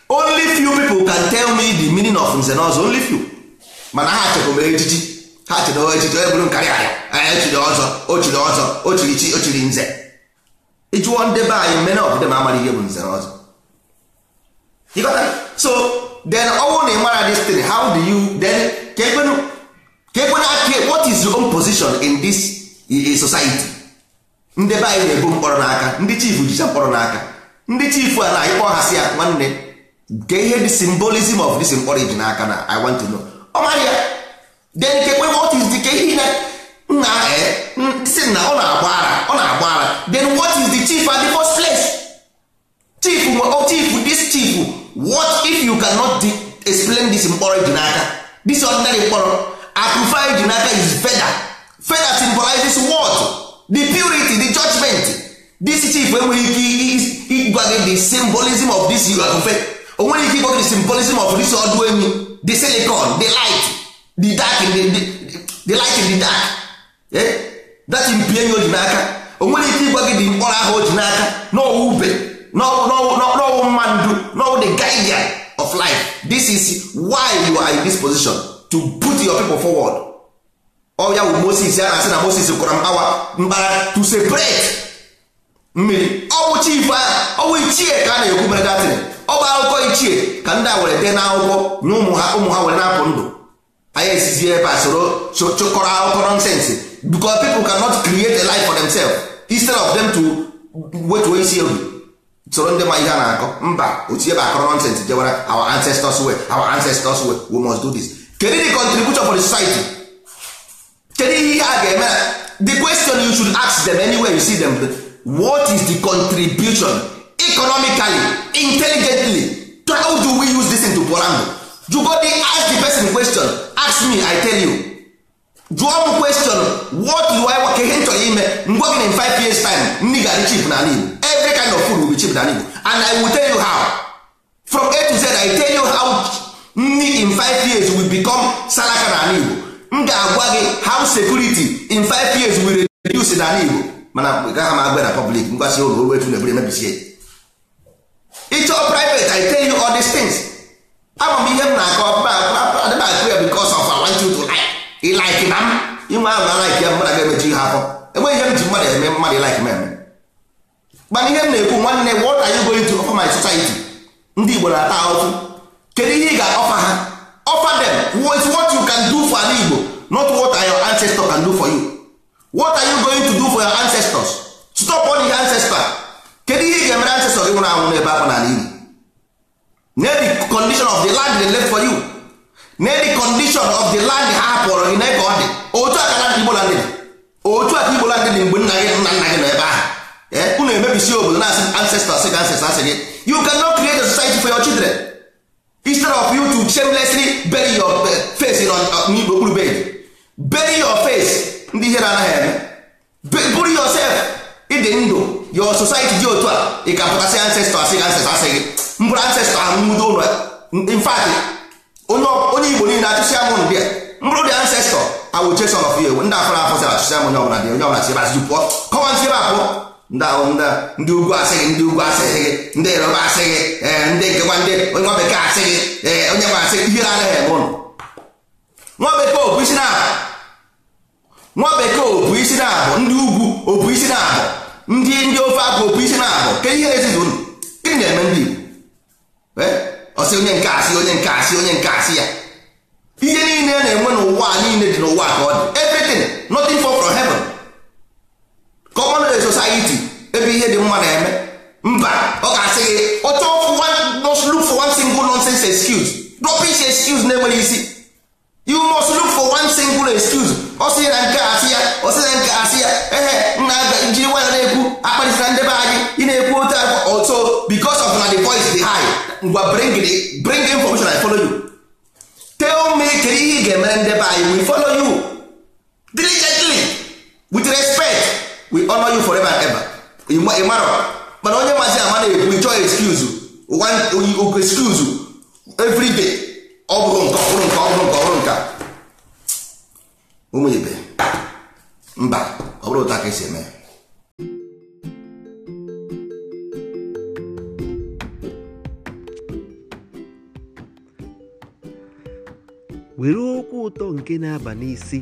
only few people can tell me the meaning of nze na ọzọ only few mana ha chekwa mere ejiji ha chere ejiji onye bụrụ nkarị anya anya echiri ọzọ o ochiri ọzọ o ochiri chi ochiri nze ịjụọ ndị be anyị mmene ọbụdị ma amara ihe bụ nze na ọzọ so then ọnwụ na ịmara this thing how do you then kekwenu ekwena aka what is your own position in this society ndị be anyị na-ebu mkpọrọ n'aka ndị chifu jicha mkpọrọ n'aka ndị chifu a na anyị kpọọ hasị ya nwanne ke ihe the symbolism of this mkpọrọ n'aka na i want to know ọ mara ya then kekwe what is the ke ihe na nna eh, si na ọ na-agba ara ọ na-agba ara then what is the chief at the first place chief oh, chief this chief what if you cannot explain this mkpọrọ ji n'aka this ordinary mkpọrọ akụfa ji n'aka is feather feather symbolizes what the purity the judgment this chief enweghị ike ịgwa gị the symbolism of this akụfe o nweghị ike ịgwa gị the symbolism of this ọdụ enyi the silicon the light the dark in the, the, the light in the dark eh? that mpi ji n'aka o nweghị ike ịgwa gị the mkpọrọ ahụ o ji n'aka na ọwa ube n'ọwụ mmandu n'ọwụ the guardian of life this is why you are in this position to put your people forward ọya oh, wụ Moses ya na-asị na Moses kwara mkpawa mkpara to separate mmiri ọwụ oh, chief a ah, ọwụ oh, ichie ka a ah, na-ekwu mere datin ọ bụ akụkọ ichie ka ndị a were dee n'akwụkwọ na ụmụ ha ụmụ ha were na-apụ ndụ anyị esizi ebe a soro chụkọrọ akụkọ ah, nonsensị because people cannot create a life for themselves instead of them to wetuo isi egwu soro ndị ma ihe a na-akọ mba otu ebe akọrọ nonsens our ancestors way our ancestors way we must do this kedu the contribution for the society kedu ihe a ga-eme the question you should ask them anywhere you see them what is the contribution economically intelligently how do we use this into porango you go dey ask the person question ask me i tell you jụọ m question what do I want ihe nchọrọ ime ngwa gị in 5 years time nri ga-adị cheap na Igbo every kind of food will be cheap na Igbo and I will tell you how from A to Z I tell you how nri in five years will become salaka na Igbo m ga-agwa gị how security in five years will reduce na Igbo mana gaghị m agwa na public ngwasị ụlọ oru etu na-eburu emebisie ịchọọ private I tell you all these things ama m ihe m na-akọ adịghị akụ ya because of I want ị laiki na m inwe ahụ na laiki ya mmadụ ga-emechi ha afọ enweghị ihe m ji mmadụ eme mmadụ ịlaiki m eme mana ihe m na-ekwu nwanne what are you going to offer my society ndị Igbo na-ata ahụhụ kedu ihe ị ga-ọfa ha offer them what you can do for ala Igbo not what your ancestors can do for you what are you going to do for your ancestors stop on the ancestors kedu ihe ị ga-emere ancestors gị nwụrụ anwụ n'ebe ahụ n'ala Igbo the condition of the land dey left for you n'edi condition of the land ha pụrụ gị n'ebe ọ dị otu a ka land Igbo land dị otu a ka Igbo land dị mgbe nna gị nna nna gị nọ ebe ahụ eh, unu emebisi obodo na-asị ancestors gị ancestors gị you cannot create a society for your children instead of you to shamelessly bury your eh, face n'igbo uh, okpuru bed bury your face ndị ihe ihere anaghị eme bury yourself ịdị ndụ your society dị otu a ị ka pụtasị ancestors gị ancestors gị mbụrụ ancestor ahụ nwudo ụlọ in onye igbo niile achụsị amụn bịa mbụrụ dị ancestọ awụ ndị afọ afọ sara achụsị amụn ọbụla dị onye ọbụla si bazụ pụọ ebe apụ ndị ugwu asịghị ndị ugwu asịghị ndị yoruba asịghị e, ndị nkekwa ndị onye nwa bekee asịghị ee onye nwa ihe nwa bekee obu isi na-abụ nwa bekee obu isi na-abụ ndị isi na-abụ ndị ndị ofe isi na-abụ ke ndị igbo e? ọsị onye nke asị onye nke asị onye nke asị ya ihe niile a na-enwe n'ụwa niile dị n'ụwa ka ọ dị everything nothing for from heaven common society ebe ihe dị mma na-eme mba ọ ga-asị gị ọchọ look for one single nonsense excuse rubbish excuse na-enweghị isi you must look for one single excuse ọ sị na nke asị ya ọ sị na nke asị ya ehe nna njiri nwanyị na-ekwu akparịsịra ndị be anyị ị na-ekwu otu akwa because of na the voice dey high ngwa bring the bring the information I follow you tell me kedu ihe ị ga-emere ndị anyị we follow you diligently with respect we honor you forever and ever ị mara mana onye mazi ama na-ekwu chọọ excuse one excuse every day ọ bụrụ nke ọ bụrụ nke ọ bụrụ nke ọ bụrụ nke ụmụ mba ọ bụrụ ụta ka esi eme were okwu ụtọ nke na-aba n'isi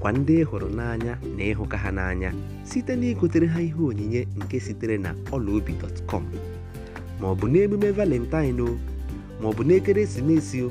kwa ndị hụrụ n'anya na ịhụka ha n'anya site na igotere ha ihe onyinye nke sitere na ọlaobi.com ma ọ bụ n'emume valentine o ma ọ bụ n'ekeresimesi o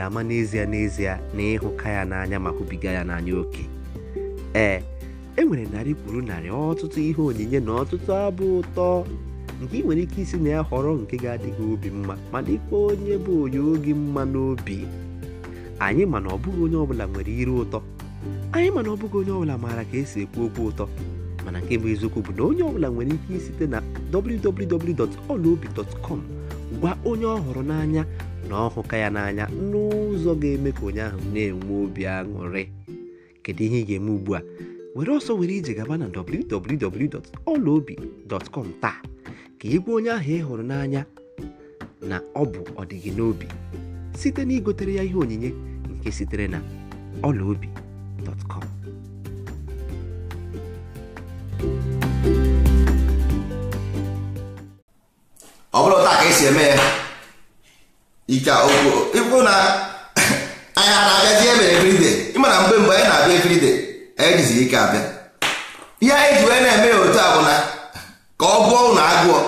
ga-ama n'ezie n'ezie na ịhụka ya n'anya ma hụbiga ya n'anya oke ee e nwere narị kwuru narị ọtụtụ ihe onyinye na ọtụtụ abụ ụtọ nke ị nwere ike isi na ya họrọ nke ga-adịghị obi mma ma dịkwa onye bụ onye oge mma n'obi anyị mana ọbụghị onye ọbụla nwere iru ụtọ anyị mana ọbụghị onye ọbụla maara ka esi ekwu okwu ụtọ mana nke bụ eziokwu bụ na onye ọbụla nwere ike isite na wwwolobicom gwa onye ọ n'anya na ọ ya ya n'anya n'ụzọ ga-eme ka onye ahụ na-enwe obi aṅụrị kedu ihe ị ga-eme ugbu a were ọsọ were ije gaba na www.ọlaobi.com taa ka ị gwa onye ahụ ị hụrụ n'anya na ọ bụ ọdịgị n'obi site na igotere ya ihe onyinye nke sitere na ọlaobi.com ọ taa ka esi eme ya ike ikwu na anyị a na-abịazi ebe everyday ịmana mgbe mgbe anyị na-abịa everyday anyị jizi ike abịa ihe anyị ji wee na-eme ya otu a bụ na ka ọ gụọ ụnụ agụọ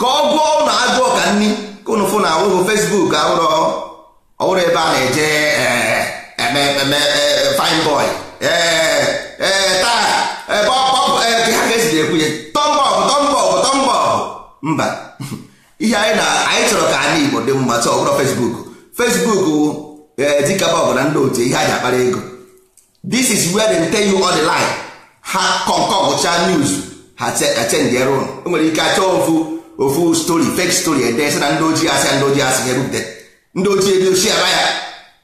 ka ọ gụọ ụnụ agụọ ka nni ka ụnụ fụ na awụghụ Facebook ọwụrụ ebe a na-eje eh, eh, eme eh, fine boy taa ebe ha ga-esi ekwu ya tọmbọbụ tọmbọbụ tọmbọbụ mba ihe anyị na anyị chọrọ ka anyị Igbo dị mma sọ ọbụrụ Facebook Facebook bụ e, dịkaba ọbụ na ndị otu ihe anyị akpara ego this is where they tell you all the lie ha kọnkọgụcha news ha chendi rụ o nwere ike achọ ofu ofu story fake story ede sị na ndị ojii asị ndị ojii asị ha ebupụta ndị ojii ebi ochi ara ya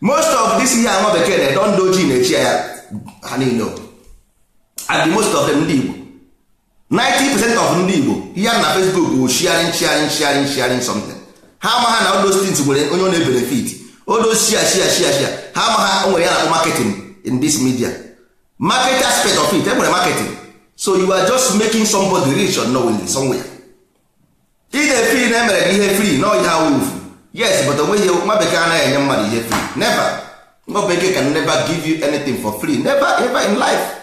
most of this ihe anwa bekee na-edo ndị ojii na-echi ya ha niile and most of them ndị Igbo 90% of ndị Igbo ihe na Facebook bụ sharing sharing sharing sharing something ha amaghị na odo stins nwere onye ọ na-ebenefit odo shia shia shia shia ha amaghị nwere ya na-akpọ marketing in this media market aspect of it enwere marketing so you are just making somebody rich unknowingly somewhere ị na-efiri na emere gị ihe free na ihe awuf yes but onweghị nwa bekee anaghị enye mmadụ ihe free never nwa bekee can never give you anything for free never ever in life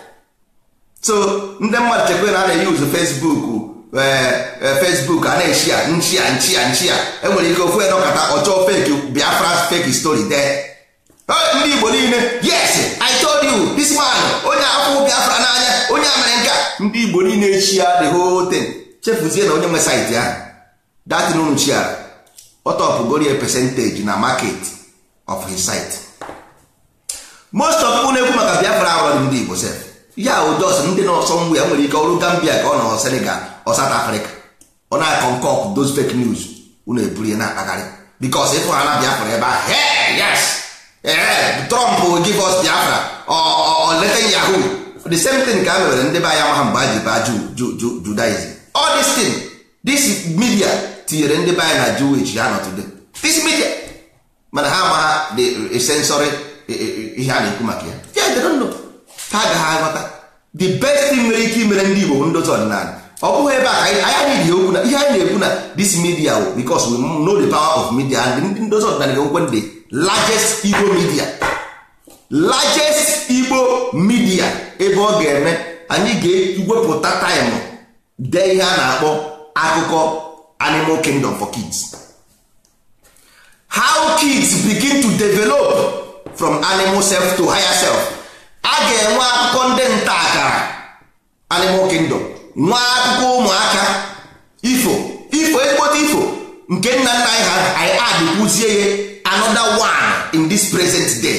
so ndị mmadụ chekwa na a na fesbuk Facebook eh, eh, Facebook a na-eshia nchia nchia ya enwere ike ofu edọkata ọchọọ fake Biafra fake story de ndị Igbo niile yes I told you this man onye afọ Biafra n'anya onye amere ndị Igbo niile echi the whole thing chefuzie na onye nwe saịtị ahụ datin unu chiara ọtọpụgorie percentage na market of his site most of unu ekwu maka Biafra ahụ ndị Igbo sef ya ụdọs ndị na-ọsọ nwa ya nwere ike ọrụ Gambia ka ọ nọ Senegal ọ South Africa ọ na-akọ nke ọkụ those fake news unu eburu ya na-akpagharị because ịfụ ha na Biafra ebe ahụ hey yes eh Trump give us Biafra ọ leta Yahoo the same thing ka a mewere ndị be anya maha mgbe a ji baa Judaism all this media tinyere ndị be anya na Jewish ha nọ today this media mana ha amaha the sensory ihe a na-ekwu maka ya yeah they don't know Ka ga aghọta the best mere ike imere ndị Igbo ndozi ọdịnala ọ bụghị ebe a ihe anyị na-ekwu na this media wo because we know the power of media and ndị ndozi ọdịnala ga-enwekwe the largest Igbo media largest Igbo media ebe ọ ga-eme anyị ga-ewepụta time dee ihe a na-akpọ akụkọ animal kingdom for kids how kids begin to develop from animal self to higher self a ga-enwe akụkọ ndị nta akara animal kingdom nwa akụkọ ụmụaka ifo ifo ekpote ifo nke nna nna anyị ha anyị adịkwuzie ya another one in this present day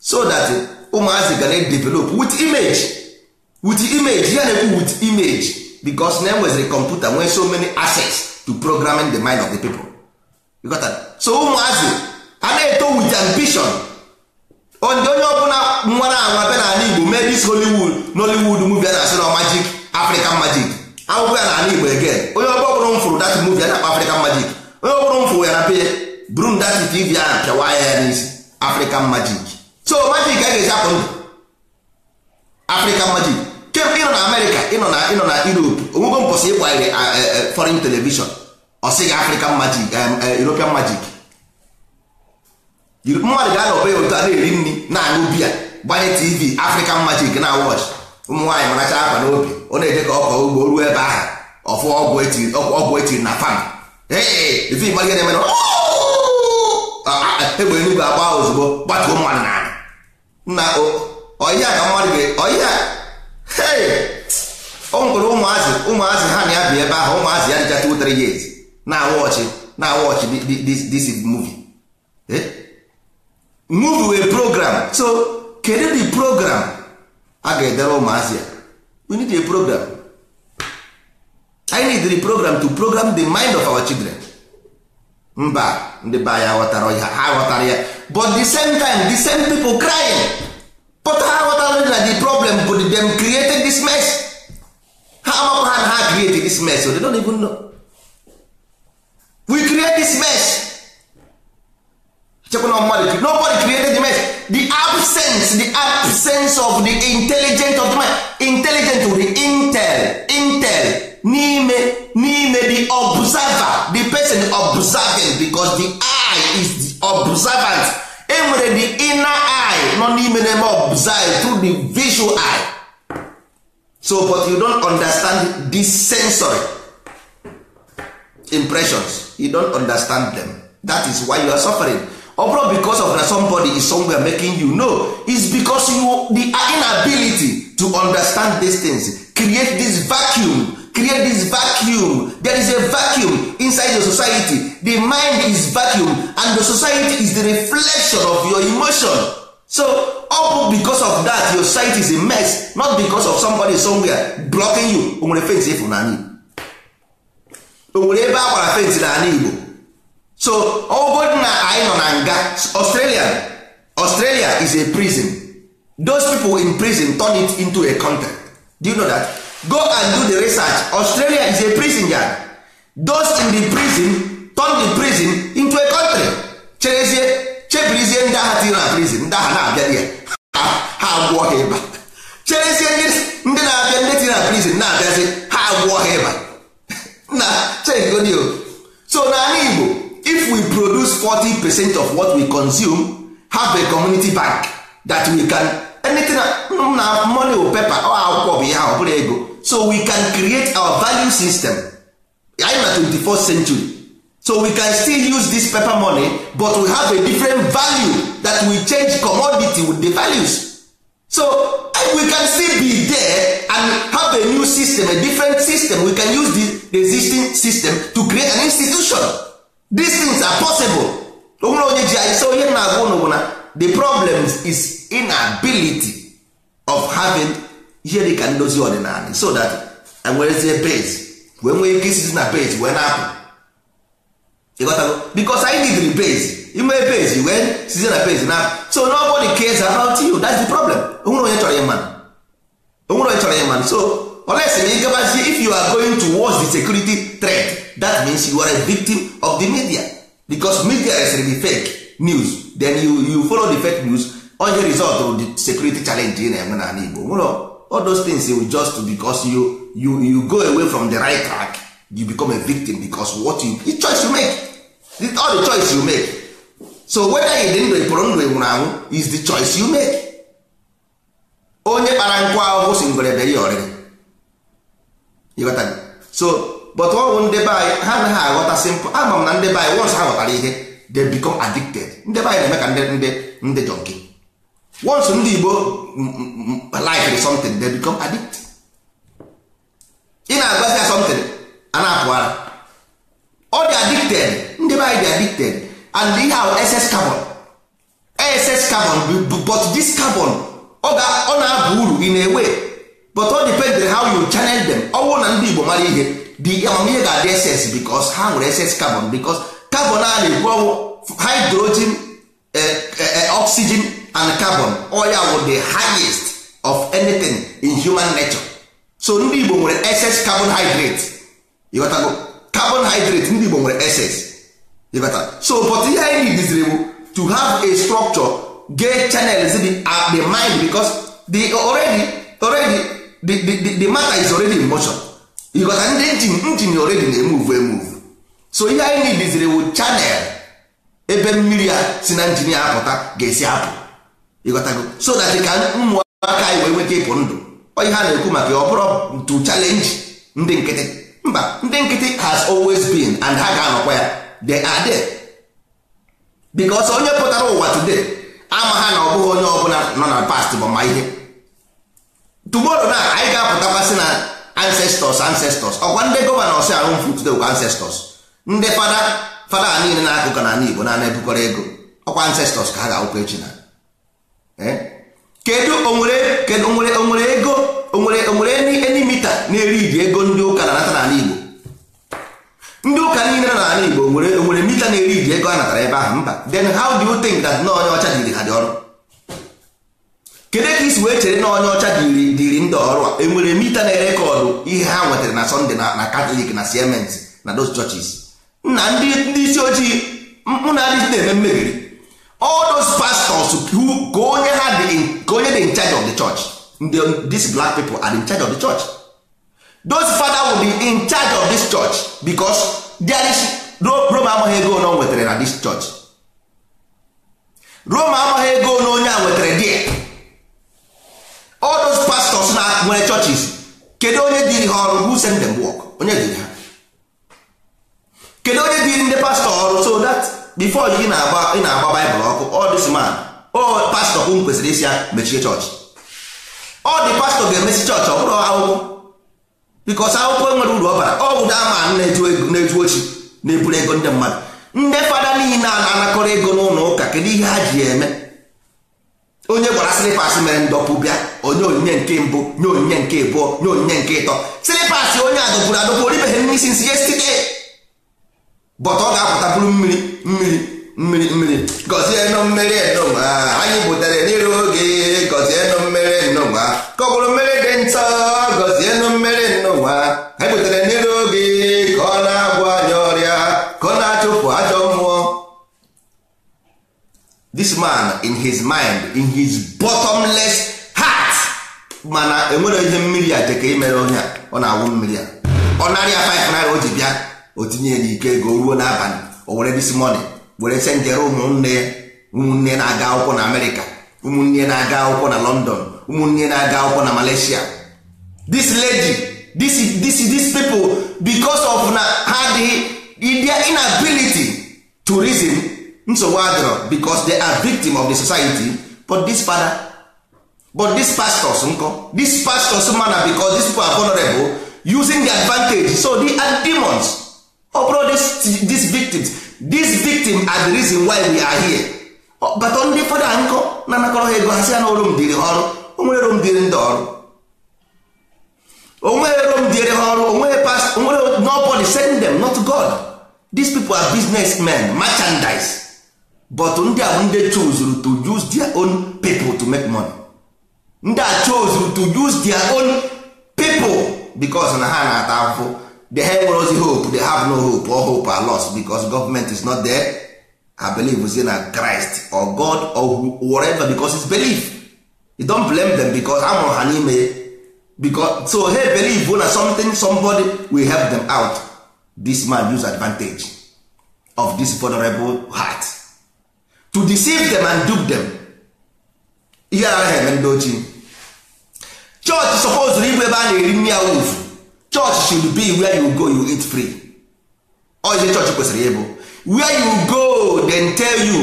so that ụmụazị ga na-develop with image with image ya na-ekwu with image because na enweziri kọmputa nwee so many assets to programming the mind of the people got so ụmụazị a na-eto with ambition onye ọbụla nwara this Hollywood Nollywood movie a na-asị na magic African magic akwụkwọ ya na ala Igbo again onye ọbụla m fụrụ dati movie a na akpa African magic onye ọbụla m fụrụ ya na brun buru that TV ahụ anya ya n'isi African magic so magic a ga-eji apụ ndụ African magic kemgbe ịnọ na amerika ịnọ na ịnọ na Europe onwego mbọsị ịgbanyere eh, eh, eh, foreign television ọ African magic European magic mmadụ ga anọbe ya otu a na-eri nri na-aṅụ biya gbanye tv african magic na watch ụmụ nwaanyị maracha akwa n'obi ọ na-eje ka ọkọ ugbo ruo ebe ahụ ọfụ ọgwụ ọgwụ etiri na fam oh! ah, ah, ah, egbe eluigwe agba ozugbo gbatuo mmadụ n'ala na ọhịa ka mmadụ ga o nwere ụmụazị ụmụazị ha na ya bi ebe ahụ ụmụazị ya dịcha 2-3 years na awọchị na awọchị this movie eh? movie wee program so kedu the program a ga-edere ụmụazị a we need a program i need the program to program the mind of our children mba ndị be anyị aghọtara ya ha ghọtara ya but the same time the same people crying but ha ghọtara na the problem bụ dem created this mess ha amakwa ha na ha create this mess so they don't even know we create this mess nobody created the mess the absence the absence of the intelligent of the mind intelligent to the intel intel n'ime n'ime the observer the person observing because the eye is the observant enwere the inner eye nọ n'ime na-eme observe through the visual eye so but you don't understand the sensory impressions you don't understand them that is why you are suffering ọbụrụ bụrụ of na somebody is somewhere making you know is bicos you the inability to understand these things create this vacuum create this vacuum there is a vacuum inside your society the mind is vacuum and the society is the reflection of your emotion so ọbụ bụ of that your society is a mess not bicos of somebody somewhere blocking you o nwere fence if Igbo o ebe a gbara fence n'ala Igbo so ọgodi na anyị nọ na nga australia australia is a prison those people in prison turn it into a country do you know that go and do the research australia is a prison yard those in the prison turn the prison into a country cherezie chebirizie ndị agha tiri na prison ndị agha na-abịa ya ha agwụọ ha ịba cherezie ndị na-abịa ndị tiri na prison na-abịazi ha agwụọ ha ịba na chegodio so na anyị igbo if we produce 40 percent of what we consume have a community bank that we can anything mm, na money or paper or akwụkwọ bụ ihe ọ bụrụ ego so we can create our value system anyị na 24th century so we can still use this paper money but we have a different value that we change commodity with the values so we can still be there and have a new system a different system we can use the existing system to create an institution these things are possible onwere onye ji anyị so onye na-agwa ụnụ bụ na the problem is inability of having ihe dị ka ndozi ọdịnala so that enwerezie base wee nwee ike isi na page wee na-apụ ịghọtago bikos anyị nidiri page inwee base wee sizie na base na so nobody cares about you that's the problem onwere onye chọrọ ịma onwere onye chọrọ ịma so olesi na ịgabazie if you are going towards the security threat that means you are a victim of the media because media is the fake news then you, you follow the fake news on your result of the security challenge ị na-enwe n'ala Igbo nwere all those things you just because you, you, you go away from the right track you become a victim because what you, the choice you make the all the choice you make so whether you dị ndụ ịpụrụ ndụ anwụ is the choice you make onye kpara nkụ ahụhụ si ngwere bere ya ọrịrị so but ọ bụ ndị be anyị ha anaghị aghọta simple ama m na ndị anyị once ha ghọtara ihe they become addicted ndị be anyị na-eme ka ndị jọnki once ndị Igbo like something they become addicted ị na-agbazi ya something a na-apụ ara ọ dị addicted ndị be anyị dị addicted and ihe ahụ ss carbon ss carbon but this carbon ọ oh, oh, na abụ uru ị na-ewe but ọ depended how you channel them ọ bụrụ na ndị Igbo mara ihe the amamihe ga-adị eses bikos ha nwere eses carbon bikos carbon a na-ekwu hydrogen eh, eh, eh, oxygen and carbon oya wụ the highest of anything in human nature so ndị Igbo nwere excess carbohydrate carbon hydrate ndị Igbo nwere excess ịghọta so but ihe anyị diziri bụ to have a structure get channels dị at uh, the mind because the already already the, the, the, the matter is already in motion because ndị njin njin already na-emuvu emuvu so ihe anyị nidiziri wu chanel ebe mmiri a si na njin ya apụta ga-esi apụ ịghọtago so that ka ụmụaka anyị wee nweta ịpụ ndụ onye ha na-ekwu maka ọ bụrụ to challenge ndị nkịtị mba ndị nkịtị has always been and ha ga-anọkwa ya the are there because onye pụtara ụwa today ama ha na ọ bụghị onye ọbụla nọ na past bụ ma ihe tomorrow na anyị ga apụtakwasị na ancestors ancestors ọkwa ndị gọvanọ ahụ mfu today kwa ancestors ndị fada fada niile na-akụkọ na ala igbo na na-ebukọrọ ego ọkwa ancestors ka ha ga-awụkọ echi na eh? kedu onwere kedu onwere onwere ego onwere onwere eni mita na-eri iji ego ndị ụka na-anata n'ala igbo ndị ụka niile na ala igbo onwere onwere mita na-eri iji ego a natara ebe ahụ mba then how do you think that na onye ọcha diri ha dị ọrụ kedu ka isi wee chere na onye ọcha dịrị ndị ọrụ a enwere mita na rekọdụ ihe ha nwetara na sọnde na katọlik na siemens na those churches na ndị isi ojii mkpụ na adịghị na-eme mmebiri all those pastors ka onye ha ka onye dị in charge of the church these black people are in charge of the church those father will be in charge of this church because there is Rome amaghị ego na o nwetara na this church Rome amaghị ego na onye a nwetara there pastọs na nwere chọchis kedu onye dịrị ha ọrụ who send them onye dịrị ha kedu onye dịrị ndị pastọ ọrụ so dat before ị na-agba ị na-agba baịbụl ọkụ all this man ọ pastọ kwesịrị isi ya mechie chọọchị ọ dị pastọ ga-emesi chọọchị ọ bụrụ akwụkwọ bikos akwụkwọ nwere uru ọ bara ọ bụ dama na-eju ochi na-eburu ego ndị mmadụ ndị fada niile a na-anakọrọ ego n'ụlọ ụka kedu ihe ha ji eme onye gwara silipas mere ndọpụ bịa onye onyinye nke mbụ nye onyinye nke abụọ nye onyinye nke ịtọ silipas onye adọpụrụ adọpụ oribeghị nne isi nsi yestide bọta ọ ga-apụta bụrụ mmiri mmiri mmiri mmiri gọzie nụ mmiri nụnwa anyị butere n'ire oge gọzie nụ mmiri nụnwa ka ọ bụrụ mmiri dị ntọ gọzie nụ mmiri nụnwa anyị butere n'ire this man in his mind in his bottomless heart mana enwere ihe mmiri a jeka imere onye a ọ na-awụ mmiri a ọ narịa 5 naira o ji bịa o tinye n'ike ego ruo n'abalị o were this morning were senjere ụmụnne ya ụmụnne na-aga akwụkwọ na amerịka ụmụnne na-aga akwụkwọ na london ụmụnne na-aga akwụkwọ na malaysia this lady this, this, this people because of na ha dị inability to reason nsogbu adịrọ because they are victim of the society but this father but this pastors nkọ this pastors mana because these people are vulnerable using the advantage so they are demons ọ these victims these victims are the reason why we are here oh, but ndị fada nkọ na-anakọrọ ha ego ha si ya na onwere rom dịrị onwere past onwere nobody send them not God these people are businessmen merchandise but ndị a ndị chozuru to use their own people to make money ndị a chozuru to use their own people because na ha na-ata ahụhụ the ha nwere hope they have no hope or hope are lost because government is not there I believe say na Christ or God or whatever because it's belief you don blame them because ha mụrụ ha n'ime because so hey believe na something somebody will help them out this man use advantage of this vulnerable heart to deceive them and dupe them ihe ara ha eme ndị ochie chọọchị sọpọzụrụ ịbụ ebe a na-eri nri should be where you go you eat free church you kwesịrị ịbụ where you go then tell you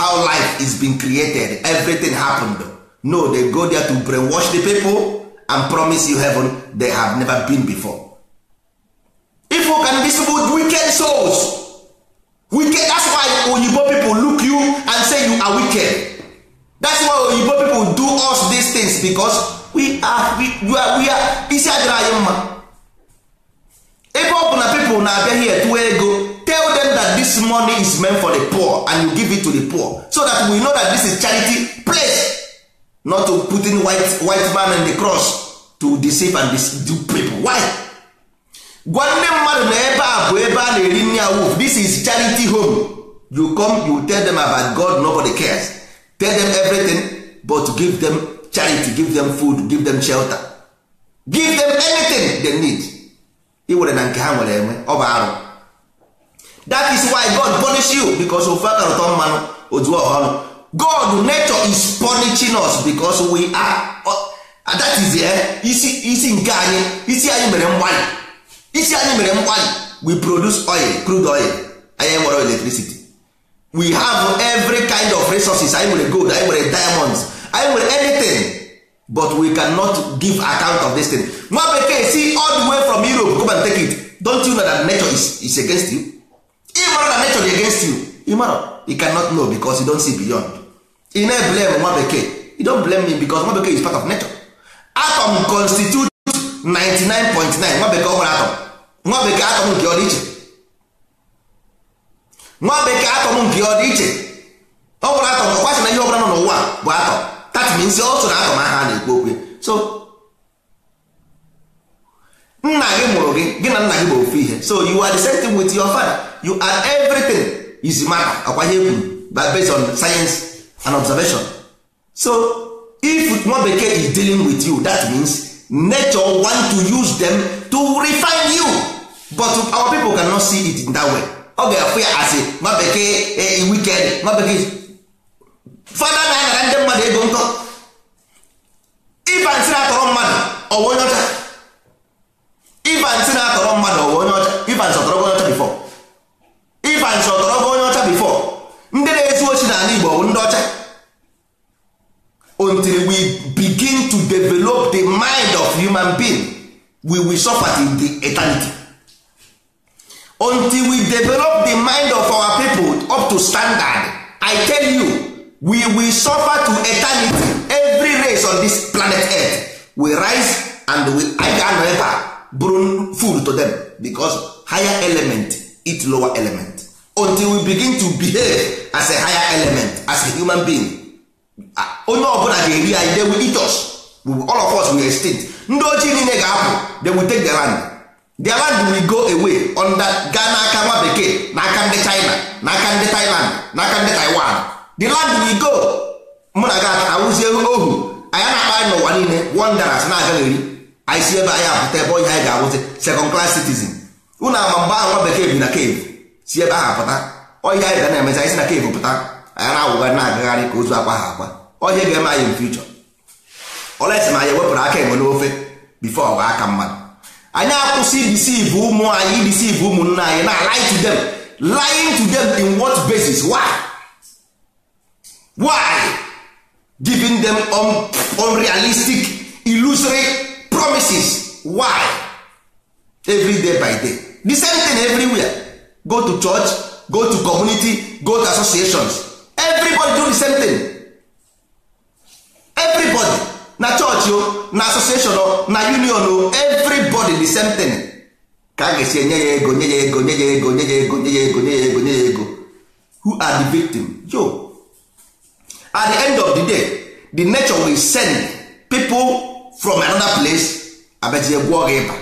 how life is being created everything happened no they go there to brainwash the people and promise you heaven they have never been before if you can visible wicked souls wicked as care that's why oyibo people do us these things because we are we, we are, we are isi adịrị anyị mma ebe ọ bụ na people na-abịa here tụọ ego tell them that this money is meant for the poor and you give it to the poor so that we know that this is charity place not to put in white, white man and the cross to deceive and deceive people why gwa nne mmadụ na ebe a bụ ebe a na-eri nri awuf this is charity home you come you tell them about god nobody cares tell them everything but give them charity give them food give them shelter give them anything they need iwere na nke ha nwere enwe ọ bụ arụ that is why god punish you because ofe akarụtọ mmanụ ojuo ọhụrụ god nature is punishing us because we are uh, that is uh, isi isi nke anyị isi anyị mere mgbalị isi anyị mere mgbalị we produce oil crude oil anyị nwere electricity we have every kind of resources anyị nwere gold anyị nwere diamonds anyị nwere anything but we cannot give account of this thing nwa bekee si all the way from europe come and take it don't you know that nature is, is against you ịmara na nature is against you ịmara you cannot know because you don't see beyond you no blame nwa bekee you don't blame me because nwa bekee is part of nature atom constitute 99.9 nwa bekee ọ nwere atom nwa bekee atom nke ọdịiche nwa bekee atọm nke ọ dị iche ọ bụrụ atọm na ihe ọbụla nọ n'ụwa bụ atom that means ọ so na atọm aha na-ekwu so nna gị mụrụ gị gị na nna gị bụ ofu ihe so you are the same thing with your father you are everything is matter ọkwa ihe kwuru based on science and observation so if nwa bekee is dealing with you that means nature want to use them to refine you but our people cannot see it in that way ọ ga-afụ ya asị nwa bekee e, e, wikend nwa bekee fada na-anara ndị mmadụ ego nkọ iba nsị na-atọrọ mmadụ ọwa onye ọcha iba nsị na-atọrọ mmadụ ọwa onye ọcha iba nsị ọtọrọ onye ọcha bifọ iba nsị ọtọrọ onye ọcha bifọ ndị na-ezu ochi n'ala Igbo bụ ndị ọcha until we begin to develop the mind of human being we will suffer in the eternity. until we develop the mind of our people up to standard i tell you we will suffer to eternity every race on this planet earth will rise and we I ga-anọ food to them because higher element eat lower element until we begin to behave as a higher element as a human being onye ọbụla ga-eri anyị they will eat us all of us will extinct ndị ojii niile ga-apụ they will take the land their land will go away under gaa n'aka nwa bekee n'aka ndị china n'aka ndị thailand n'aka ndị taiwan the land will go mụ na gat awụzie ohu anyị na-akpa anyị n'ụwa niile wonders na-aga n'eri anyị si ebe anyị apụta ebe onye anyị ga-awụzi second class citizen ụnụ ama mgbe ahụ nwa bekee bi na cave si ebe ahụ uh, apụta onye anyị ga na-emezi anyị si na cave pụta anya na-awụgharị na-agagharị ka ozu akwa ha akwa onye ga-eme anyị mfe ichọ olesi ma anyị wepụrụ aka enwe n'ofe bifo ọwa aka mmadụ anyị akwụsị idisiv ụmụ anyị idisiv ụmụnna anyị na lie to them lying to them in what basis why why giving them un unrealistic illusory promises why every day by day the same thing everywhere go to church go to community go to associations everybody do the same thing everybody na chọọchị o oh, na asosieshọn o oh, na union o oh, everybody the same thing ka a ga-esi enye ya ego nye ya ego nye ya ego nye ya ego nye ya ego nye ya ego nye ya ego who are the victim yo at the end of the day the nature will send people from another place abazie gwụọ gị ịba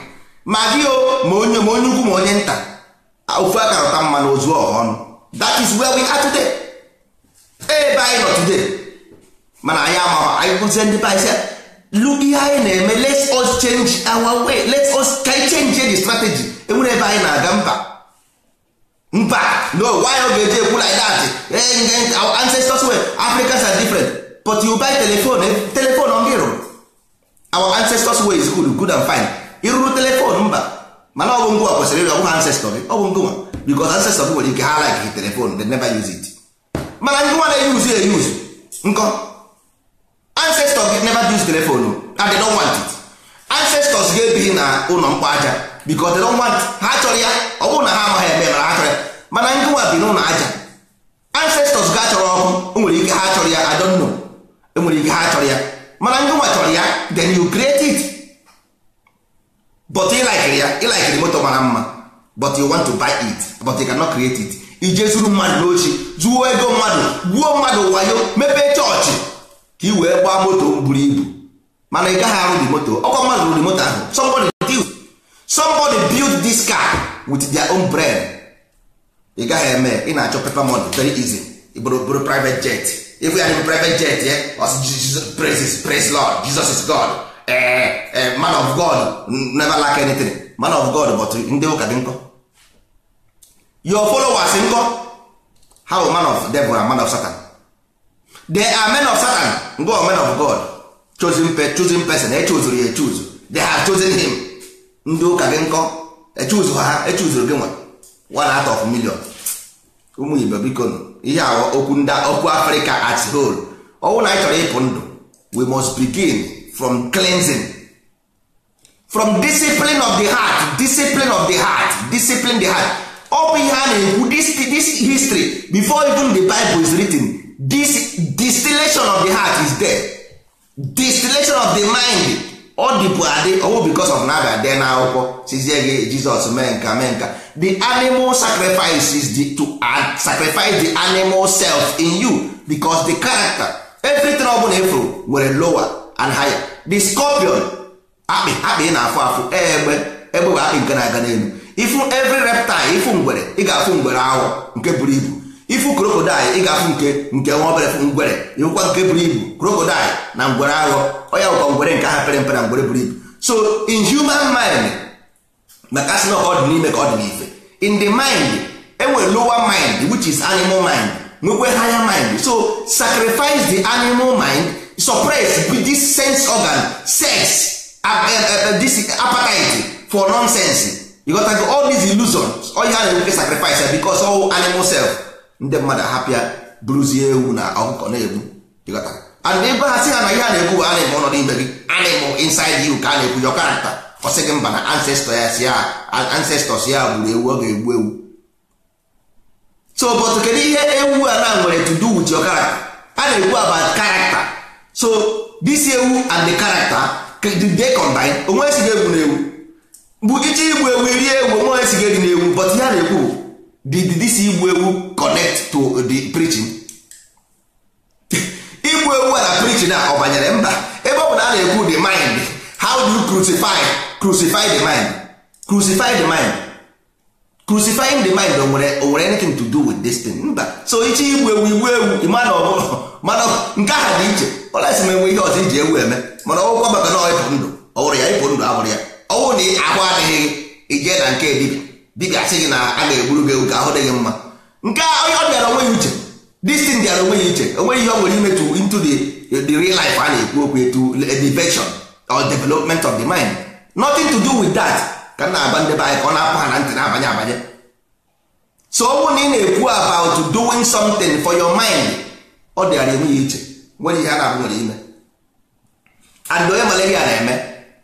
ma gị o ma onye ma onye ugwu ma onye nta ofu aka rụta mma na ozu ọha ọnụ that is where we are today ebe anyị nọ today mana anyị amaghị anyị kwụzie ndị bais look ihe eh, anyị na-eme let us change our way let us ka change eh, the strategy enwere ebe anyị na-aga mba mba no why ọ ga-eji ekwu like that eh? our ancestors were Africans are different but you buy telephone telephone ọ gịrụ our ancestors way is good good and fine ịrụrụ telephone mba mana ọ bụ ngwa kwesịrị ịrụ ancestor gị ọ bụ ngwa because ancestor nwere ike ha like telephone they never use it mana ngwa na-eyuzu use nkọ ancestors gị never use telephone and they don't want it ancestors gị ebighị na ụlọ mkpa aja because they don't want ha chọrọ ya ọ bụrụ na ha amaghị eme mara ha chọrọ ya mana ndị nwa bi n'ụlọ aja ancestors ga chọrọ ọkụ enwere ike ha chọrọ ya I don't know enwere ike ha chọrọ ya mana ndị nwa chọrọ ya then you create it but like ya ịlikiri moto mara mma but you want to buy it but you cannot create it ije zuru mmadụ n'ochi zuo ego mmadụ gbuo mmadụ wayo mepee chọọchị ka ị wee gbaa moto buru ibu mana ị gaghị arụ di moto ọkwa mmadụ rụrụ moto ahụ somebody build somebody build this car with their own brain ị gaghị eme ị na-achọ paper money very easy bụrụ bụrụ private jet ịbụ ya bụ private jet ya praise praise lord jesus is god eh, eh, man of god never lack anything man of god but ndị ụka dị nkọ your followers nkọ how man of devil and man of satan the amen of satan go men of god chosen, pe chosen person echuzuru ya echuzu they have chosen him ndị ụka gị nkọ echuzu ha echuzuru gị nwa one out of million ụmụ igbo biko ihe aghọ okwu ndị okwu afrịka at whole ọnwụ na anyị chọrọ ịpụ ndụ we must begin from cleansing from discipline of the heart discipline of the heart discipline the heart ọ bụ ihe a na-ekwu this history before even the bible is written this distillation of the heart is there distillation of the mind ọ dịbụ adị ọwụ because of na abịa dee akwụkwọ sizie gị jizọs mee nka mee nka the animal sacrifice is the, to sacrifice the animal self in you because the character everything ọ bụla efuru nwere lower and higher the scorpion akpị akpị na-afụ afụ egbe egbe bụ akpị nke na-aga n'elu ifu every reptile ifu ngwere ị ga-afụ ngwere ahụ nke buru ibu ifu krokodil ị ga-afụ nke nke nwa obere ngwere ịhụkwa nke buru ibu krokodil na ngwere aghọ onye bụkwa ngwere nke aha pere mpe na ngwere buru ibu so in human mind maka asị na ọ dị n'ime ka ọ dị n'ife in the mind enwere lower mind which is animal mind nwekwe higher mind so sacrifice the animal mind suppress this sense organ sex eh, eh, eh, this appetite for nonsense you got to go all these illusions all you have to sacrifice because all animal self ndị mmadụ ahapịa bụrụzie ewu na ọkụkọ na-egbu and ebe ha si ha na ihe a na-ekwu bụ a na-eme ọnọdụ ibe gị a na-eme inside you ka a na-ekwu your character ọ gị mba na ancestor ya si ya ancestors ya gburu ewu ọ ga-egbu ewu so but kedu ihe ewu a na nwere to do with your character a na-ekwu about character so this ewu and the character they combine onwe e si esighị egwu na ewu bụ iji igbu ewu iri ewu onwe e si esighị egwu na ewu but ihe na-ekwu did this igbu ewu connect to the preaching igbu ewu na preaching a ọ banyere mba ebe ọ bụ na a na-ekwu the mind how do you crucify crucify the mind crucify the mind crucifying the mind nwere nwere anything to do with this thing mba so ichi igbu ewu igbu ewu mana ọ bụrụ mana nke aha dị iche ọla ọlesi m enwe ihe ọzọ iji ewu eme mana ọgwụkwa maka na ọ ịpụ ndụ ọ wụrụ ya ịpụ ndụ abụrụ ya ọ ọnwụ na ahụ adịghị ije na nke dibia dịka asị gị na a ga-egburu gị ewu ka ahụ dị gị mma nke a onye ọ bịara onwe ya uche distin bịara onwe ya uche onwe ihe ọ nwere imetu into the real life a na-ekwu okwu etu elevation or development of the mind nothing to do with that ka m na-agba ndị anyị ka ọ na-apụ ha na ntị na-abanye abanye so ọ na ị na-ekwu about doing something for your mind ọ dịara enwe ya iche nwere ihe a na-abụ nwere ime and onye malaria na-eme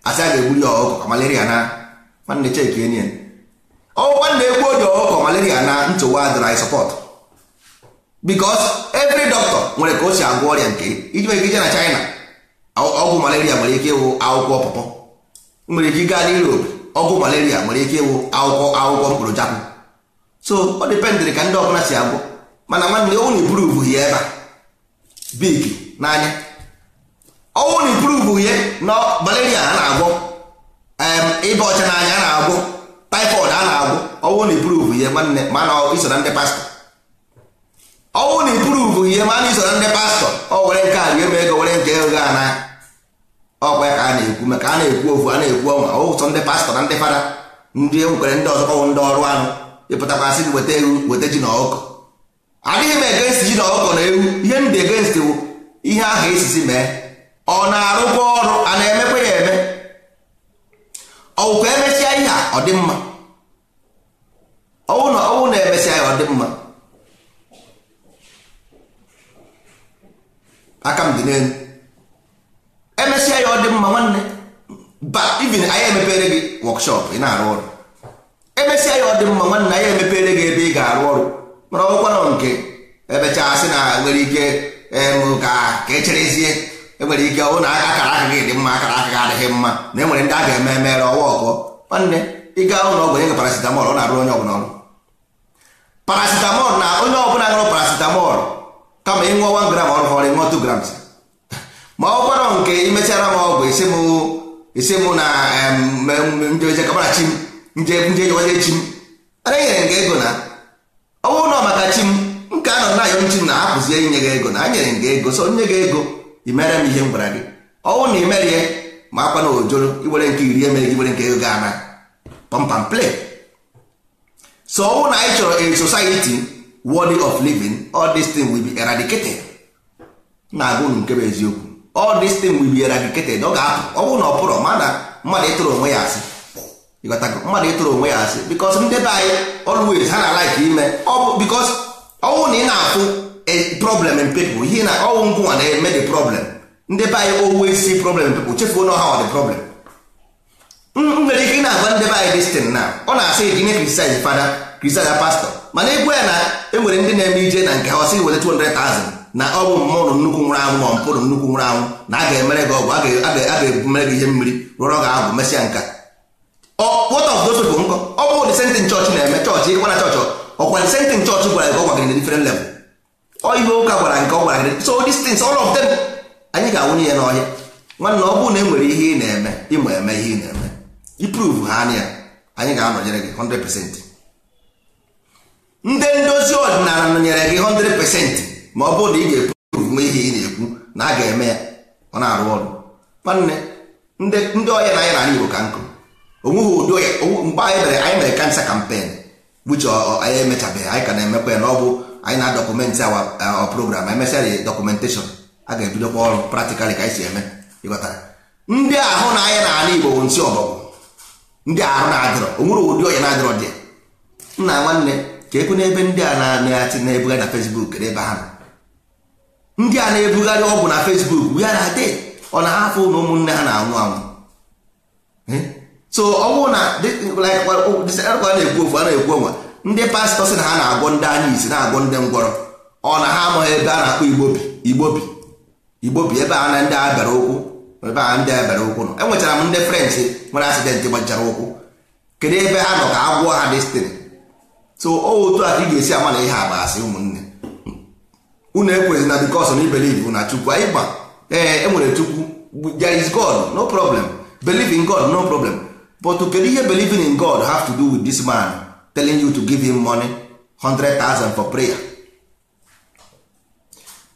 asị a ga-egburu ya ọgụ ka malaria na nwanne cheki enyen ọgwụkwa na-ekwu oji ọkụkọ malaria na ntụwa dry support because every doctor nwere ka o si agwọ ọrịa nke iji nwere ike na China ọgwụ malaria nwere ike ịwụ akwụkwọ pọpọ nwere ike gaa n'Europe ọgwụ malaria nwere ike ịwụ akwụkwọ akwụkwọ mkpụrụ jakwụ so ọ dịpendịrị ka ndị ọbụla si agwọ mana nwanne ọnwụ na iburuvu ya ebe a big n'anya ọnwụ na iburuvu ya na malaria a na-agwọ ịba ọcha n'anya a na-agwọ typhoid a na-agwụ ọwụ na ipuruvu ihe nwanne ma na iso na ndị pastọ ọwụ na ipuruvu ihe mana na iso na ndị pastọ ọ were nke a ga-eme ego were nke ego a na ọkwa ka a na-ekwu maka a na-ekwu ofu a na-ekwu ọnwa ọwụ sọ ndị pastọ na ndị fada ndị enwere ndị ọzọ ọwụ ndị ọrụ anụ ịpụtakwa sị weta ewu weta ji na ọkụkọ adịghị m egenst ji na ọkụkọ na ewu ihe ndị egenst wụ ihe ahụ esisi mee ọ na-arụkwa ọrụ a na-emekwa ya eme ọwụkwa emesịa ihe a ọ dị mma ọwụ na ọwụ na emesịa ya ọ dị mma aka m dị n'elu emesịa ya ọ dị mma nwanne even anyị emepere gị wọkshọp ị na-arụ ọrụ emesịa ya ọ dị mma nwanne anyị emepere gị ebe ị ga-arụ ọrụ mana ọgwụkwa nọ nke emechaa sị na nwere ike ka echerezie enwere ike ọ na akara aka gị dị mma akara aka gị adịghị mma na enwere ndị a ga-eme emere ọwa ọkọ nwanne ịga ụlọ ọgwụ nye parasitamọl ọ na-arụ onye ọbụla ọrụ parasitamọl na onye ọbụla ṅụrụ parasitamọl kama ịṅụọ 1 gram ọrụ ọrụ ịṅụọ 2 grams ma ọ gwarọ nke imechara m ọgwụ isi mụ na njejekabara chim njejewaje chim enyere gị ego na ọ bụrụ na maka chim nke a nọ na ayọ nchim na hapụzie inye gị ego na a nyere gị ego so nye gị ego ị mere m ihe m gwara gị ọnwụ na ị mere ihe ma akwa na ojoro iwere nke iri emere gị were nke ego ana pampam play so ọnwụ na anyị chọrọ a society worthy of living all this thing will be eradicated na-agụ unu nke bụ eziokwu all this thing will be eradicated ọ ga-apụ ọ na ọ pụrụ ma na mmadụ ịtụrụ onwe ya asị mmadụ ịtụrụ onwe ya asị because ndebe be anyị always ha na like ime ọ bụ because ọnwụ na ị na-afụ problem in people ihe na ọnwụ ngwụnwa na-eme the problem ndị be anyị always see problem pepl chefuo na ha the problem m nwere ike na-agwa ndị be anyị destin na ọ na-asị gị nye criticize fada criticize pastọ mana egwu ya na enwere ndị na-eme ije na nke ha ọsị weta 200,000 na ọ bụ mmụọ nnukwu nwụrụ anwụ ma mpụrụ nnukwu nwụrụ anwụ na a ga-emere gị ọgwụ a ga-ebumere gị ihe mmiri rụrọ gị agwụ mesịa nka what of those people nkọ ọ bụ the chọọchị na-eme chọọchị ịkwana chọọchị ọkwa the same thing chọọchị gwara gị ọgwa gị na different level ihe ụka gwara nke ọ gwara gị so these things all of them anyị ga-awụnye ya n'ọhịa nwanne ọ bụrụ na e nwere ihe ị na-eme ịma eme ihe ị na-eme iprove ha anya anyị ga-anọnyere gị 100% ndị ndozi ọdịnala nọnyere gị 100% ma ọ bụrụ na ị ga-eprove nwe ihe ị na-ekwu na a ga-eme ya ọ na-arụ ọrụ nwanne ndị ọhịa na anyị na Igbo ka nkụ onweghị ụdị mgbe anyị mere anyị mere kansa kampen buche anyị emechabeghị anyị ka na-emekwa ya na ọ bụ anyị na dọkụmentị awa program emesịa dị dọkụmentashọn a ga-ebidokwa ọrụ praktikalị ka anyị si eme ịghọtara ndị ahụ na anya n'ala Igbo bụ nsị ọbọgwụ ndị ahụ na-adịrọ onwere ụdị ọnya na-adịrọ dị nna nwanne ka ekwu n'ebe ndị a na-achị na-ebugharị na Facebook n'ebe ahụ ndị a na-ebugharị ọgwụ na Facebook ya na adị ọ na-ahapụ na ụmụnne ha na-anwụ anwụ so ọ na a na-ekwu ofu a na-ekwu onwe ndị pastọ sị na ha na-agwọ ndị anya isi na-agwọ ndị ngwọrọ ọ na ha amaghị ebe a na-akpọ igbobi igbobi igbobi ebe a na ndị abịara ụkwụ ebe a ndị abịara ụkwụ nọ enwechara m ndị french nwere asidentị gbachara ụkwụ kedu ebe ha nọ ka a gwụọ ha destiny so otu a ka ị ga-esi ama na ihe agba asị ụmụnne unu ekwezi na bikos na ibeliv na chukwu anyị gba ee e nwere chukwu there is god no problem believe in god no problem but kedu ihe believing in god have to do with this man telling you to give him money 100,000 for prayer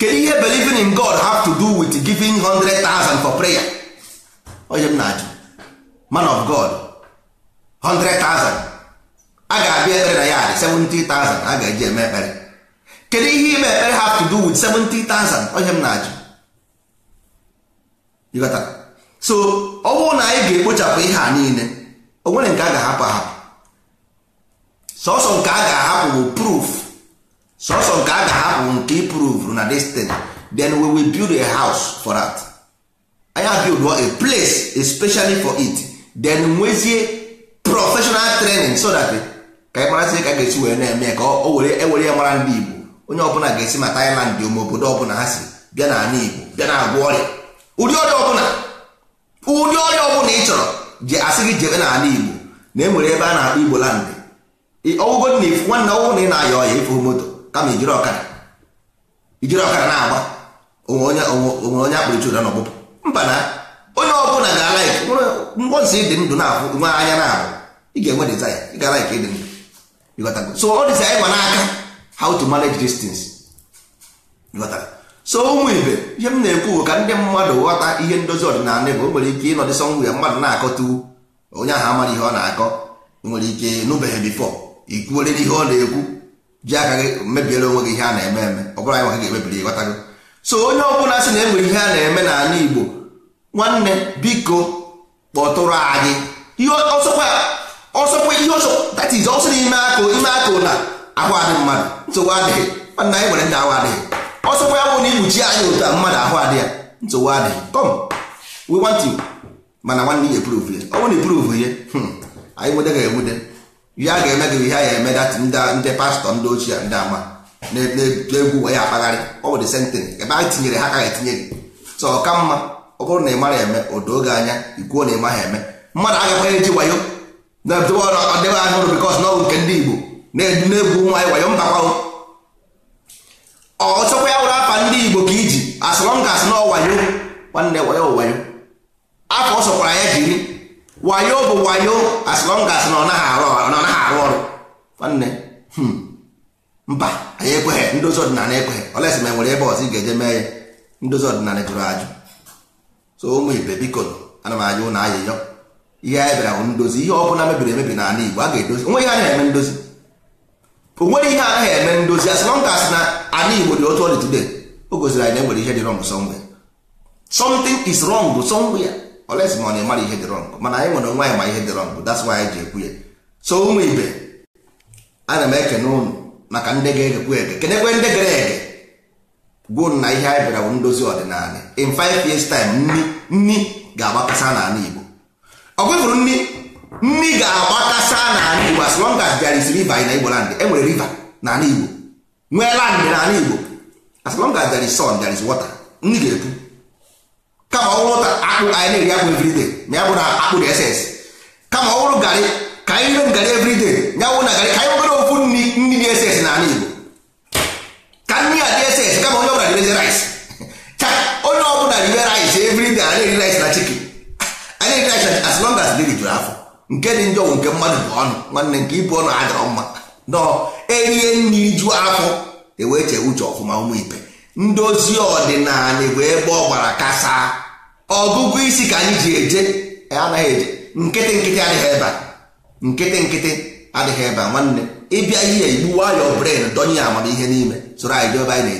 Can ihe believing in God have to do with giving 100,000 for prayer onye oh, m na-ajụ man of God 100,000 a ga-abịa ekpere na ya 70,000 a ga-eji eme ekpere kedu ihe ime ekpere have to do with 70,000 onye m na-ajụ so ọ bụrụ na anyị ga-ekpochapụ ihe a niile o nwere nke a ga-ahapụ ahapụ sọsọ nke a ga-ahapụ bụ proof sọsọ nke a ga-ahapụ nke iprove na destiny then we will build a house for that anya build a place especially for it then nwezie professional training so that eh, ka anyị marazi ka a ga-esi wee na-eme ka o were ewere ya mara ndị Igbo onye ọbụla ga-esi ma Thailand ụmụ obodo ọbụla ha si bịa na ala Igbo bịa na agwọ ọrịa ụdị ọrịa ọbụla ụdị ọrịa ọbụla ị chọrọ ji asị gị jebe n'ala Igbo na e nwere ebe a na-akpọ Igbo land ọwụgo na ifu nwanne ọwụ na ị na ayọ ọya ifu moto kama ijiri ọkara ijiri ọkara na-agba onwe onye onye akpụrụ chura ụra ọkpụkpụ mba na onye ọbụla ga-ala ifu mbọnsị ịdị ndụ na-afụ nwe anya na ahụ ị ga-enwe dezaya ị ga-ala ike ịdị ndụ ịghọtago so ọ dịza ịgwa n'aka how to manage distance ịghọtara so ụmụ ibe ihe m na-ekwu ka ndị mmadụ ghọta ihe ndozi ọdịnala bụ o nwere ike ịnọdịsọ nwụ ya mmadụ na-akọtuwu onye ahụ amaghị ihe ọ na-akọ nwere ike nụbeghị bifọ ikwuolere ihe ọ na-ekwu ji aka gị mebiere onwe gị ihe a na-eme eme ọ bụrụ anyị nwa gị ga-emebiri ịghọtago so onye ọbụla sị na enwere ihe a na-eme n'ala Igbo nwanne biko kpọtụrụ anyị ihe ọsọkwa ihe ọsọ that is ọsọ n'ime akụ ime aka na ahụ adị mmadụ nsogbu adịghị nwanne anyị nwere ndị ahụ adịghị ọsọkwa ya bụ na ikpuchi anyị ụta mmadụ ahụ adị ya nsogbu adịghị come we want you mana nwanne ya eprove ya ọ bụrụ na eprove ya hmm, anyị nwede ga-enwede ihe a ga-eme gị ihe a ya eme dat ndị pastọ ndị ochie ndị ama na-egwu wee ya akpagharị ọ bụ the same ebe anyị tinyere ha ka etinye gị so ọ ka mma ọ bụrụ na ị mara eme o doo gị anya ikwuo na ị maghị eme mmadụ agakwaghị eji wayo na-edobe ọrụ ọdịbe anya ụrụ bikọs n'ọgụ nke ndị Igbo na-egwu nwa wayo mba ọ chọkwa ya wụrụ afa ndị Igbo ka iji asọrọ m ga asị na wayo nwanne wayo wayo afọ ọ ya jiri wayo bụ wayo as long as na ọ naghị arụ ọrụ nwanne hmm, mba anyị ekweghị ndozi ọdịnala ekweghị olesi ma e nwere ebe ọzọ ị ga-eje mee ya ndozi ọdịnala jụrụ ajụ so ụmụ ibe biko ana m ajụ na ayịyọ ihe anyị bịara bụ ndozi ihe ọ bụla mebiri emebi n'ala Igbo a ga-edozi onwe ihe anaghị eme ndozi o nwere ihe anaghị eme ndozi as long as na ala Igbo dị otu ọ today o gosiri anyị na e nwere ihe dị wrong somewhere something is wrong somewhere oles ma ọ na-emara ihe dị rọng mana anyị nwere onwe anyị ma ihe dị rọng that's why anyị ji ekwu ya so ụmụ ibe ana m ekene ụnụ maka ndị ga-egekwu ege kenekwe ndị gere ege gwuo na ihe anyị bịara bụ ndozi ọdịnala in five years time nni nni ga-agbakasa n'ala Igbo ọ gwefụrụ nni nni ga-agbakasa n'ala Igbo as long as there is river na Igbo land enwere river n'ala Igbo nwee landị n'ala Igbo as long as there is sun there is water nni ga-epu kama ọ bụrụ ta akpụ anyị na-eri akpụ everyday ma ya bụ na akpụ dị esens kama ọ bụrụ garị ka anyị rem garị everyday ya bụ na garị ka anyị nwere ofu nri nri dị esens na ala Igbo ka nri a dị esens kama onye ọbụla rice rice ka onye ọbụla ribe rice everyday anyị eri rice na chicken anyị eri rice na as long as dị jụrụ afọ nke dị njọ nke mmadụ bụ ọnụ nwanne nke ibu ọnụ adịrọ mma nọ erie nri ju afọ ewee chee uche ọfụma ụmụ ibe ndozi ọdịnala bụ ebe ọ gbara kasa ọgụgụ isi ka anyị ji eje e anaghị eje nkịtị nkịtị adịghị ebe a nkịtị nkịtị adịghị ebe a nwanne ịbịa ihe igbu wayọ bren donye ya amamihe n'ime soro anyị jebe anyị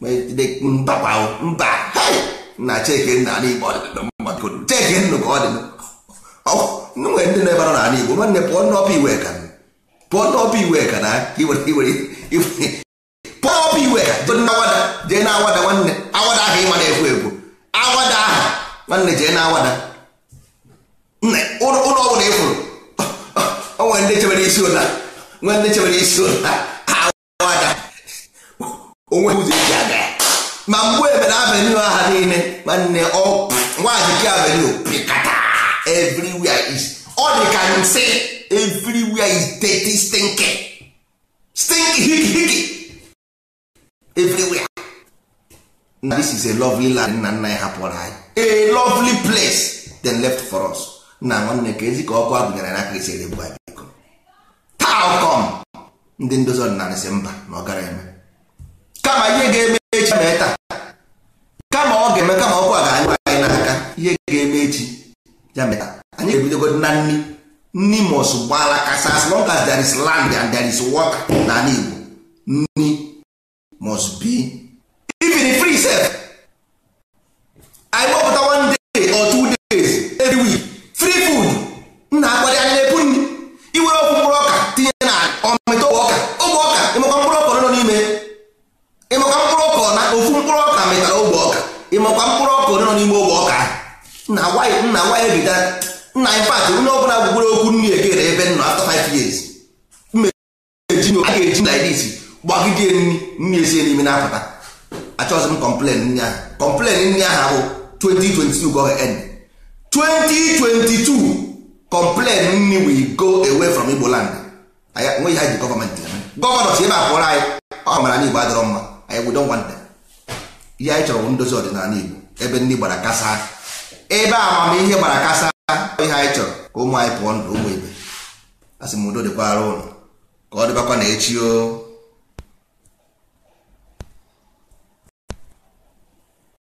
na-eje mbakwa mba na chekenna ala igbo chekennu ka ọ dị nwere ndị na-ebara n'ala igbo nwanne pụọ n'ọpụ iwe ka pụọ n'ọpụ iwe ka na pụọ ọpụ iwe ka jee na awada jee na awada nwanne awada ahụ ịma na-ekwu ekwu awada ahụ nwanne jee na awada ụlọ ọbụla ị fụrụ onwe ndị chebere isi ụla nwe ndị chebere isi ụla awada onwe ụzọ eji aga ya ma mgbe ebere avenue aha niile nwanne nwaajike avenue pịkata everywhere is ọ dị ka nsị everywhere is dirty stinking stink hiki hiki everywhere na this is a lovely land nna nna ya hapụrụ anyị a lovely place then left for us na nwanne ka ezi ka ọkụ agụnyere na aka esi erebu anyị biko taa ndị ndozi ọdịnala si mba na ọgara eme kama ihe ga-eme echi mee taa kama ọ ga-eme kama ọkụ a ga-anyụ anyị n'aka ihe ga-eme echi ya mee taa anyị ga-ebidogo na nni nni mos gbala kasa as long as there is land and there is water na Igbo nni must be the free self anyị kpọpụta one day or two days every week free food nna akpali anyị na-ebu nri iwere ọkụ mkpụrụ ọka tinye na ọmịta ogbe ọka ogbe ọka ịmakwa mkpụrụ ọka nọ n'ime ịmakwa mkpụrụ ọka na ofu mkpụrụ ọka mịtara ogbe ọka ịmakwa mkpụrụ ọka nọ n'ime ogbe ọka nna nwanyị nna nwanyị bidara nna anyị pat onye ọ bụla gwugwere okwu nri egere ebe nọ after five years mmeji a ga-eji na idis gbagidie nri nri esi n'ime na-apụta achọghịzị m kọmplen nri ahụ kọmplen nri ahụ bụ 2022 go end 2022 kọmplen nri we go away from Igbo land nweghị ha ji gọọmenti gọvanọ si ebe a pụrụ anyị ọ mara na Igbo adịrọ mma anyị we don't want them ihe anyị chọrọ ndozi ọdịnala Igbo ebe ndị gbara kasa ebe amamihe gbara kasa ihe anyị chọrọ ka ụmụ anyị pụọ ndụ ụmụ ibe asị m udo dịkwara ụlọ ka ọ dịbakwa na echi o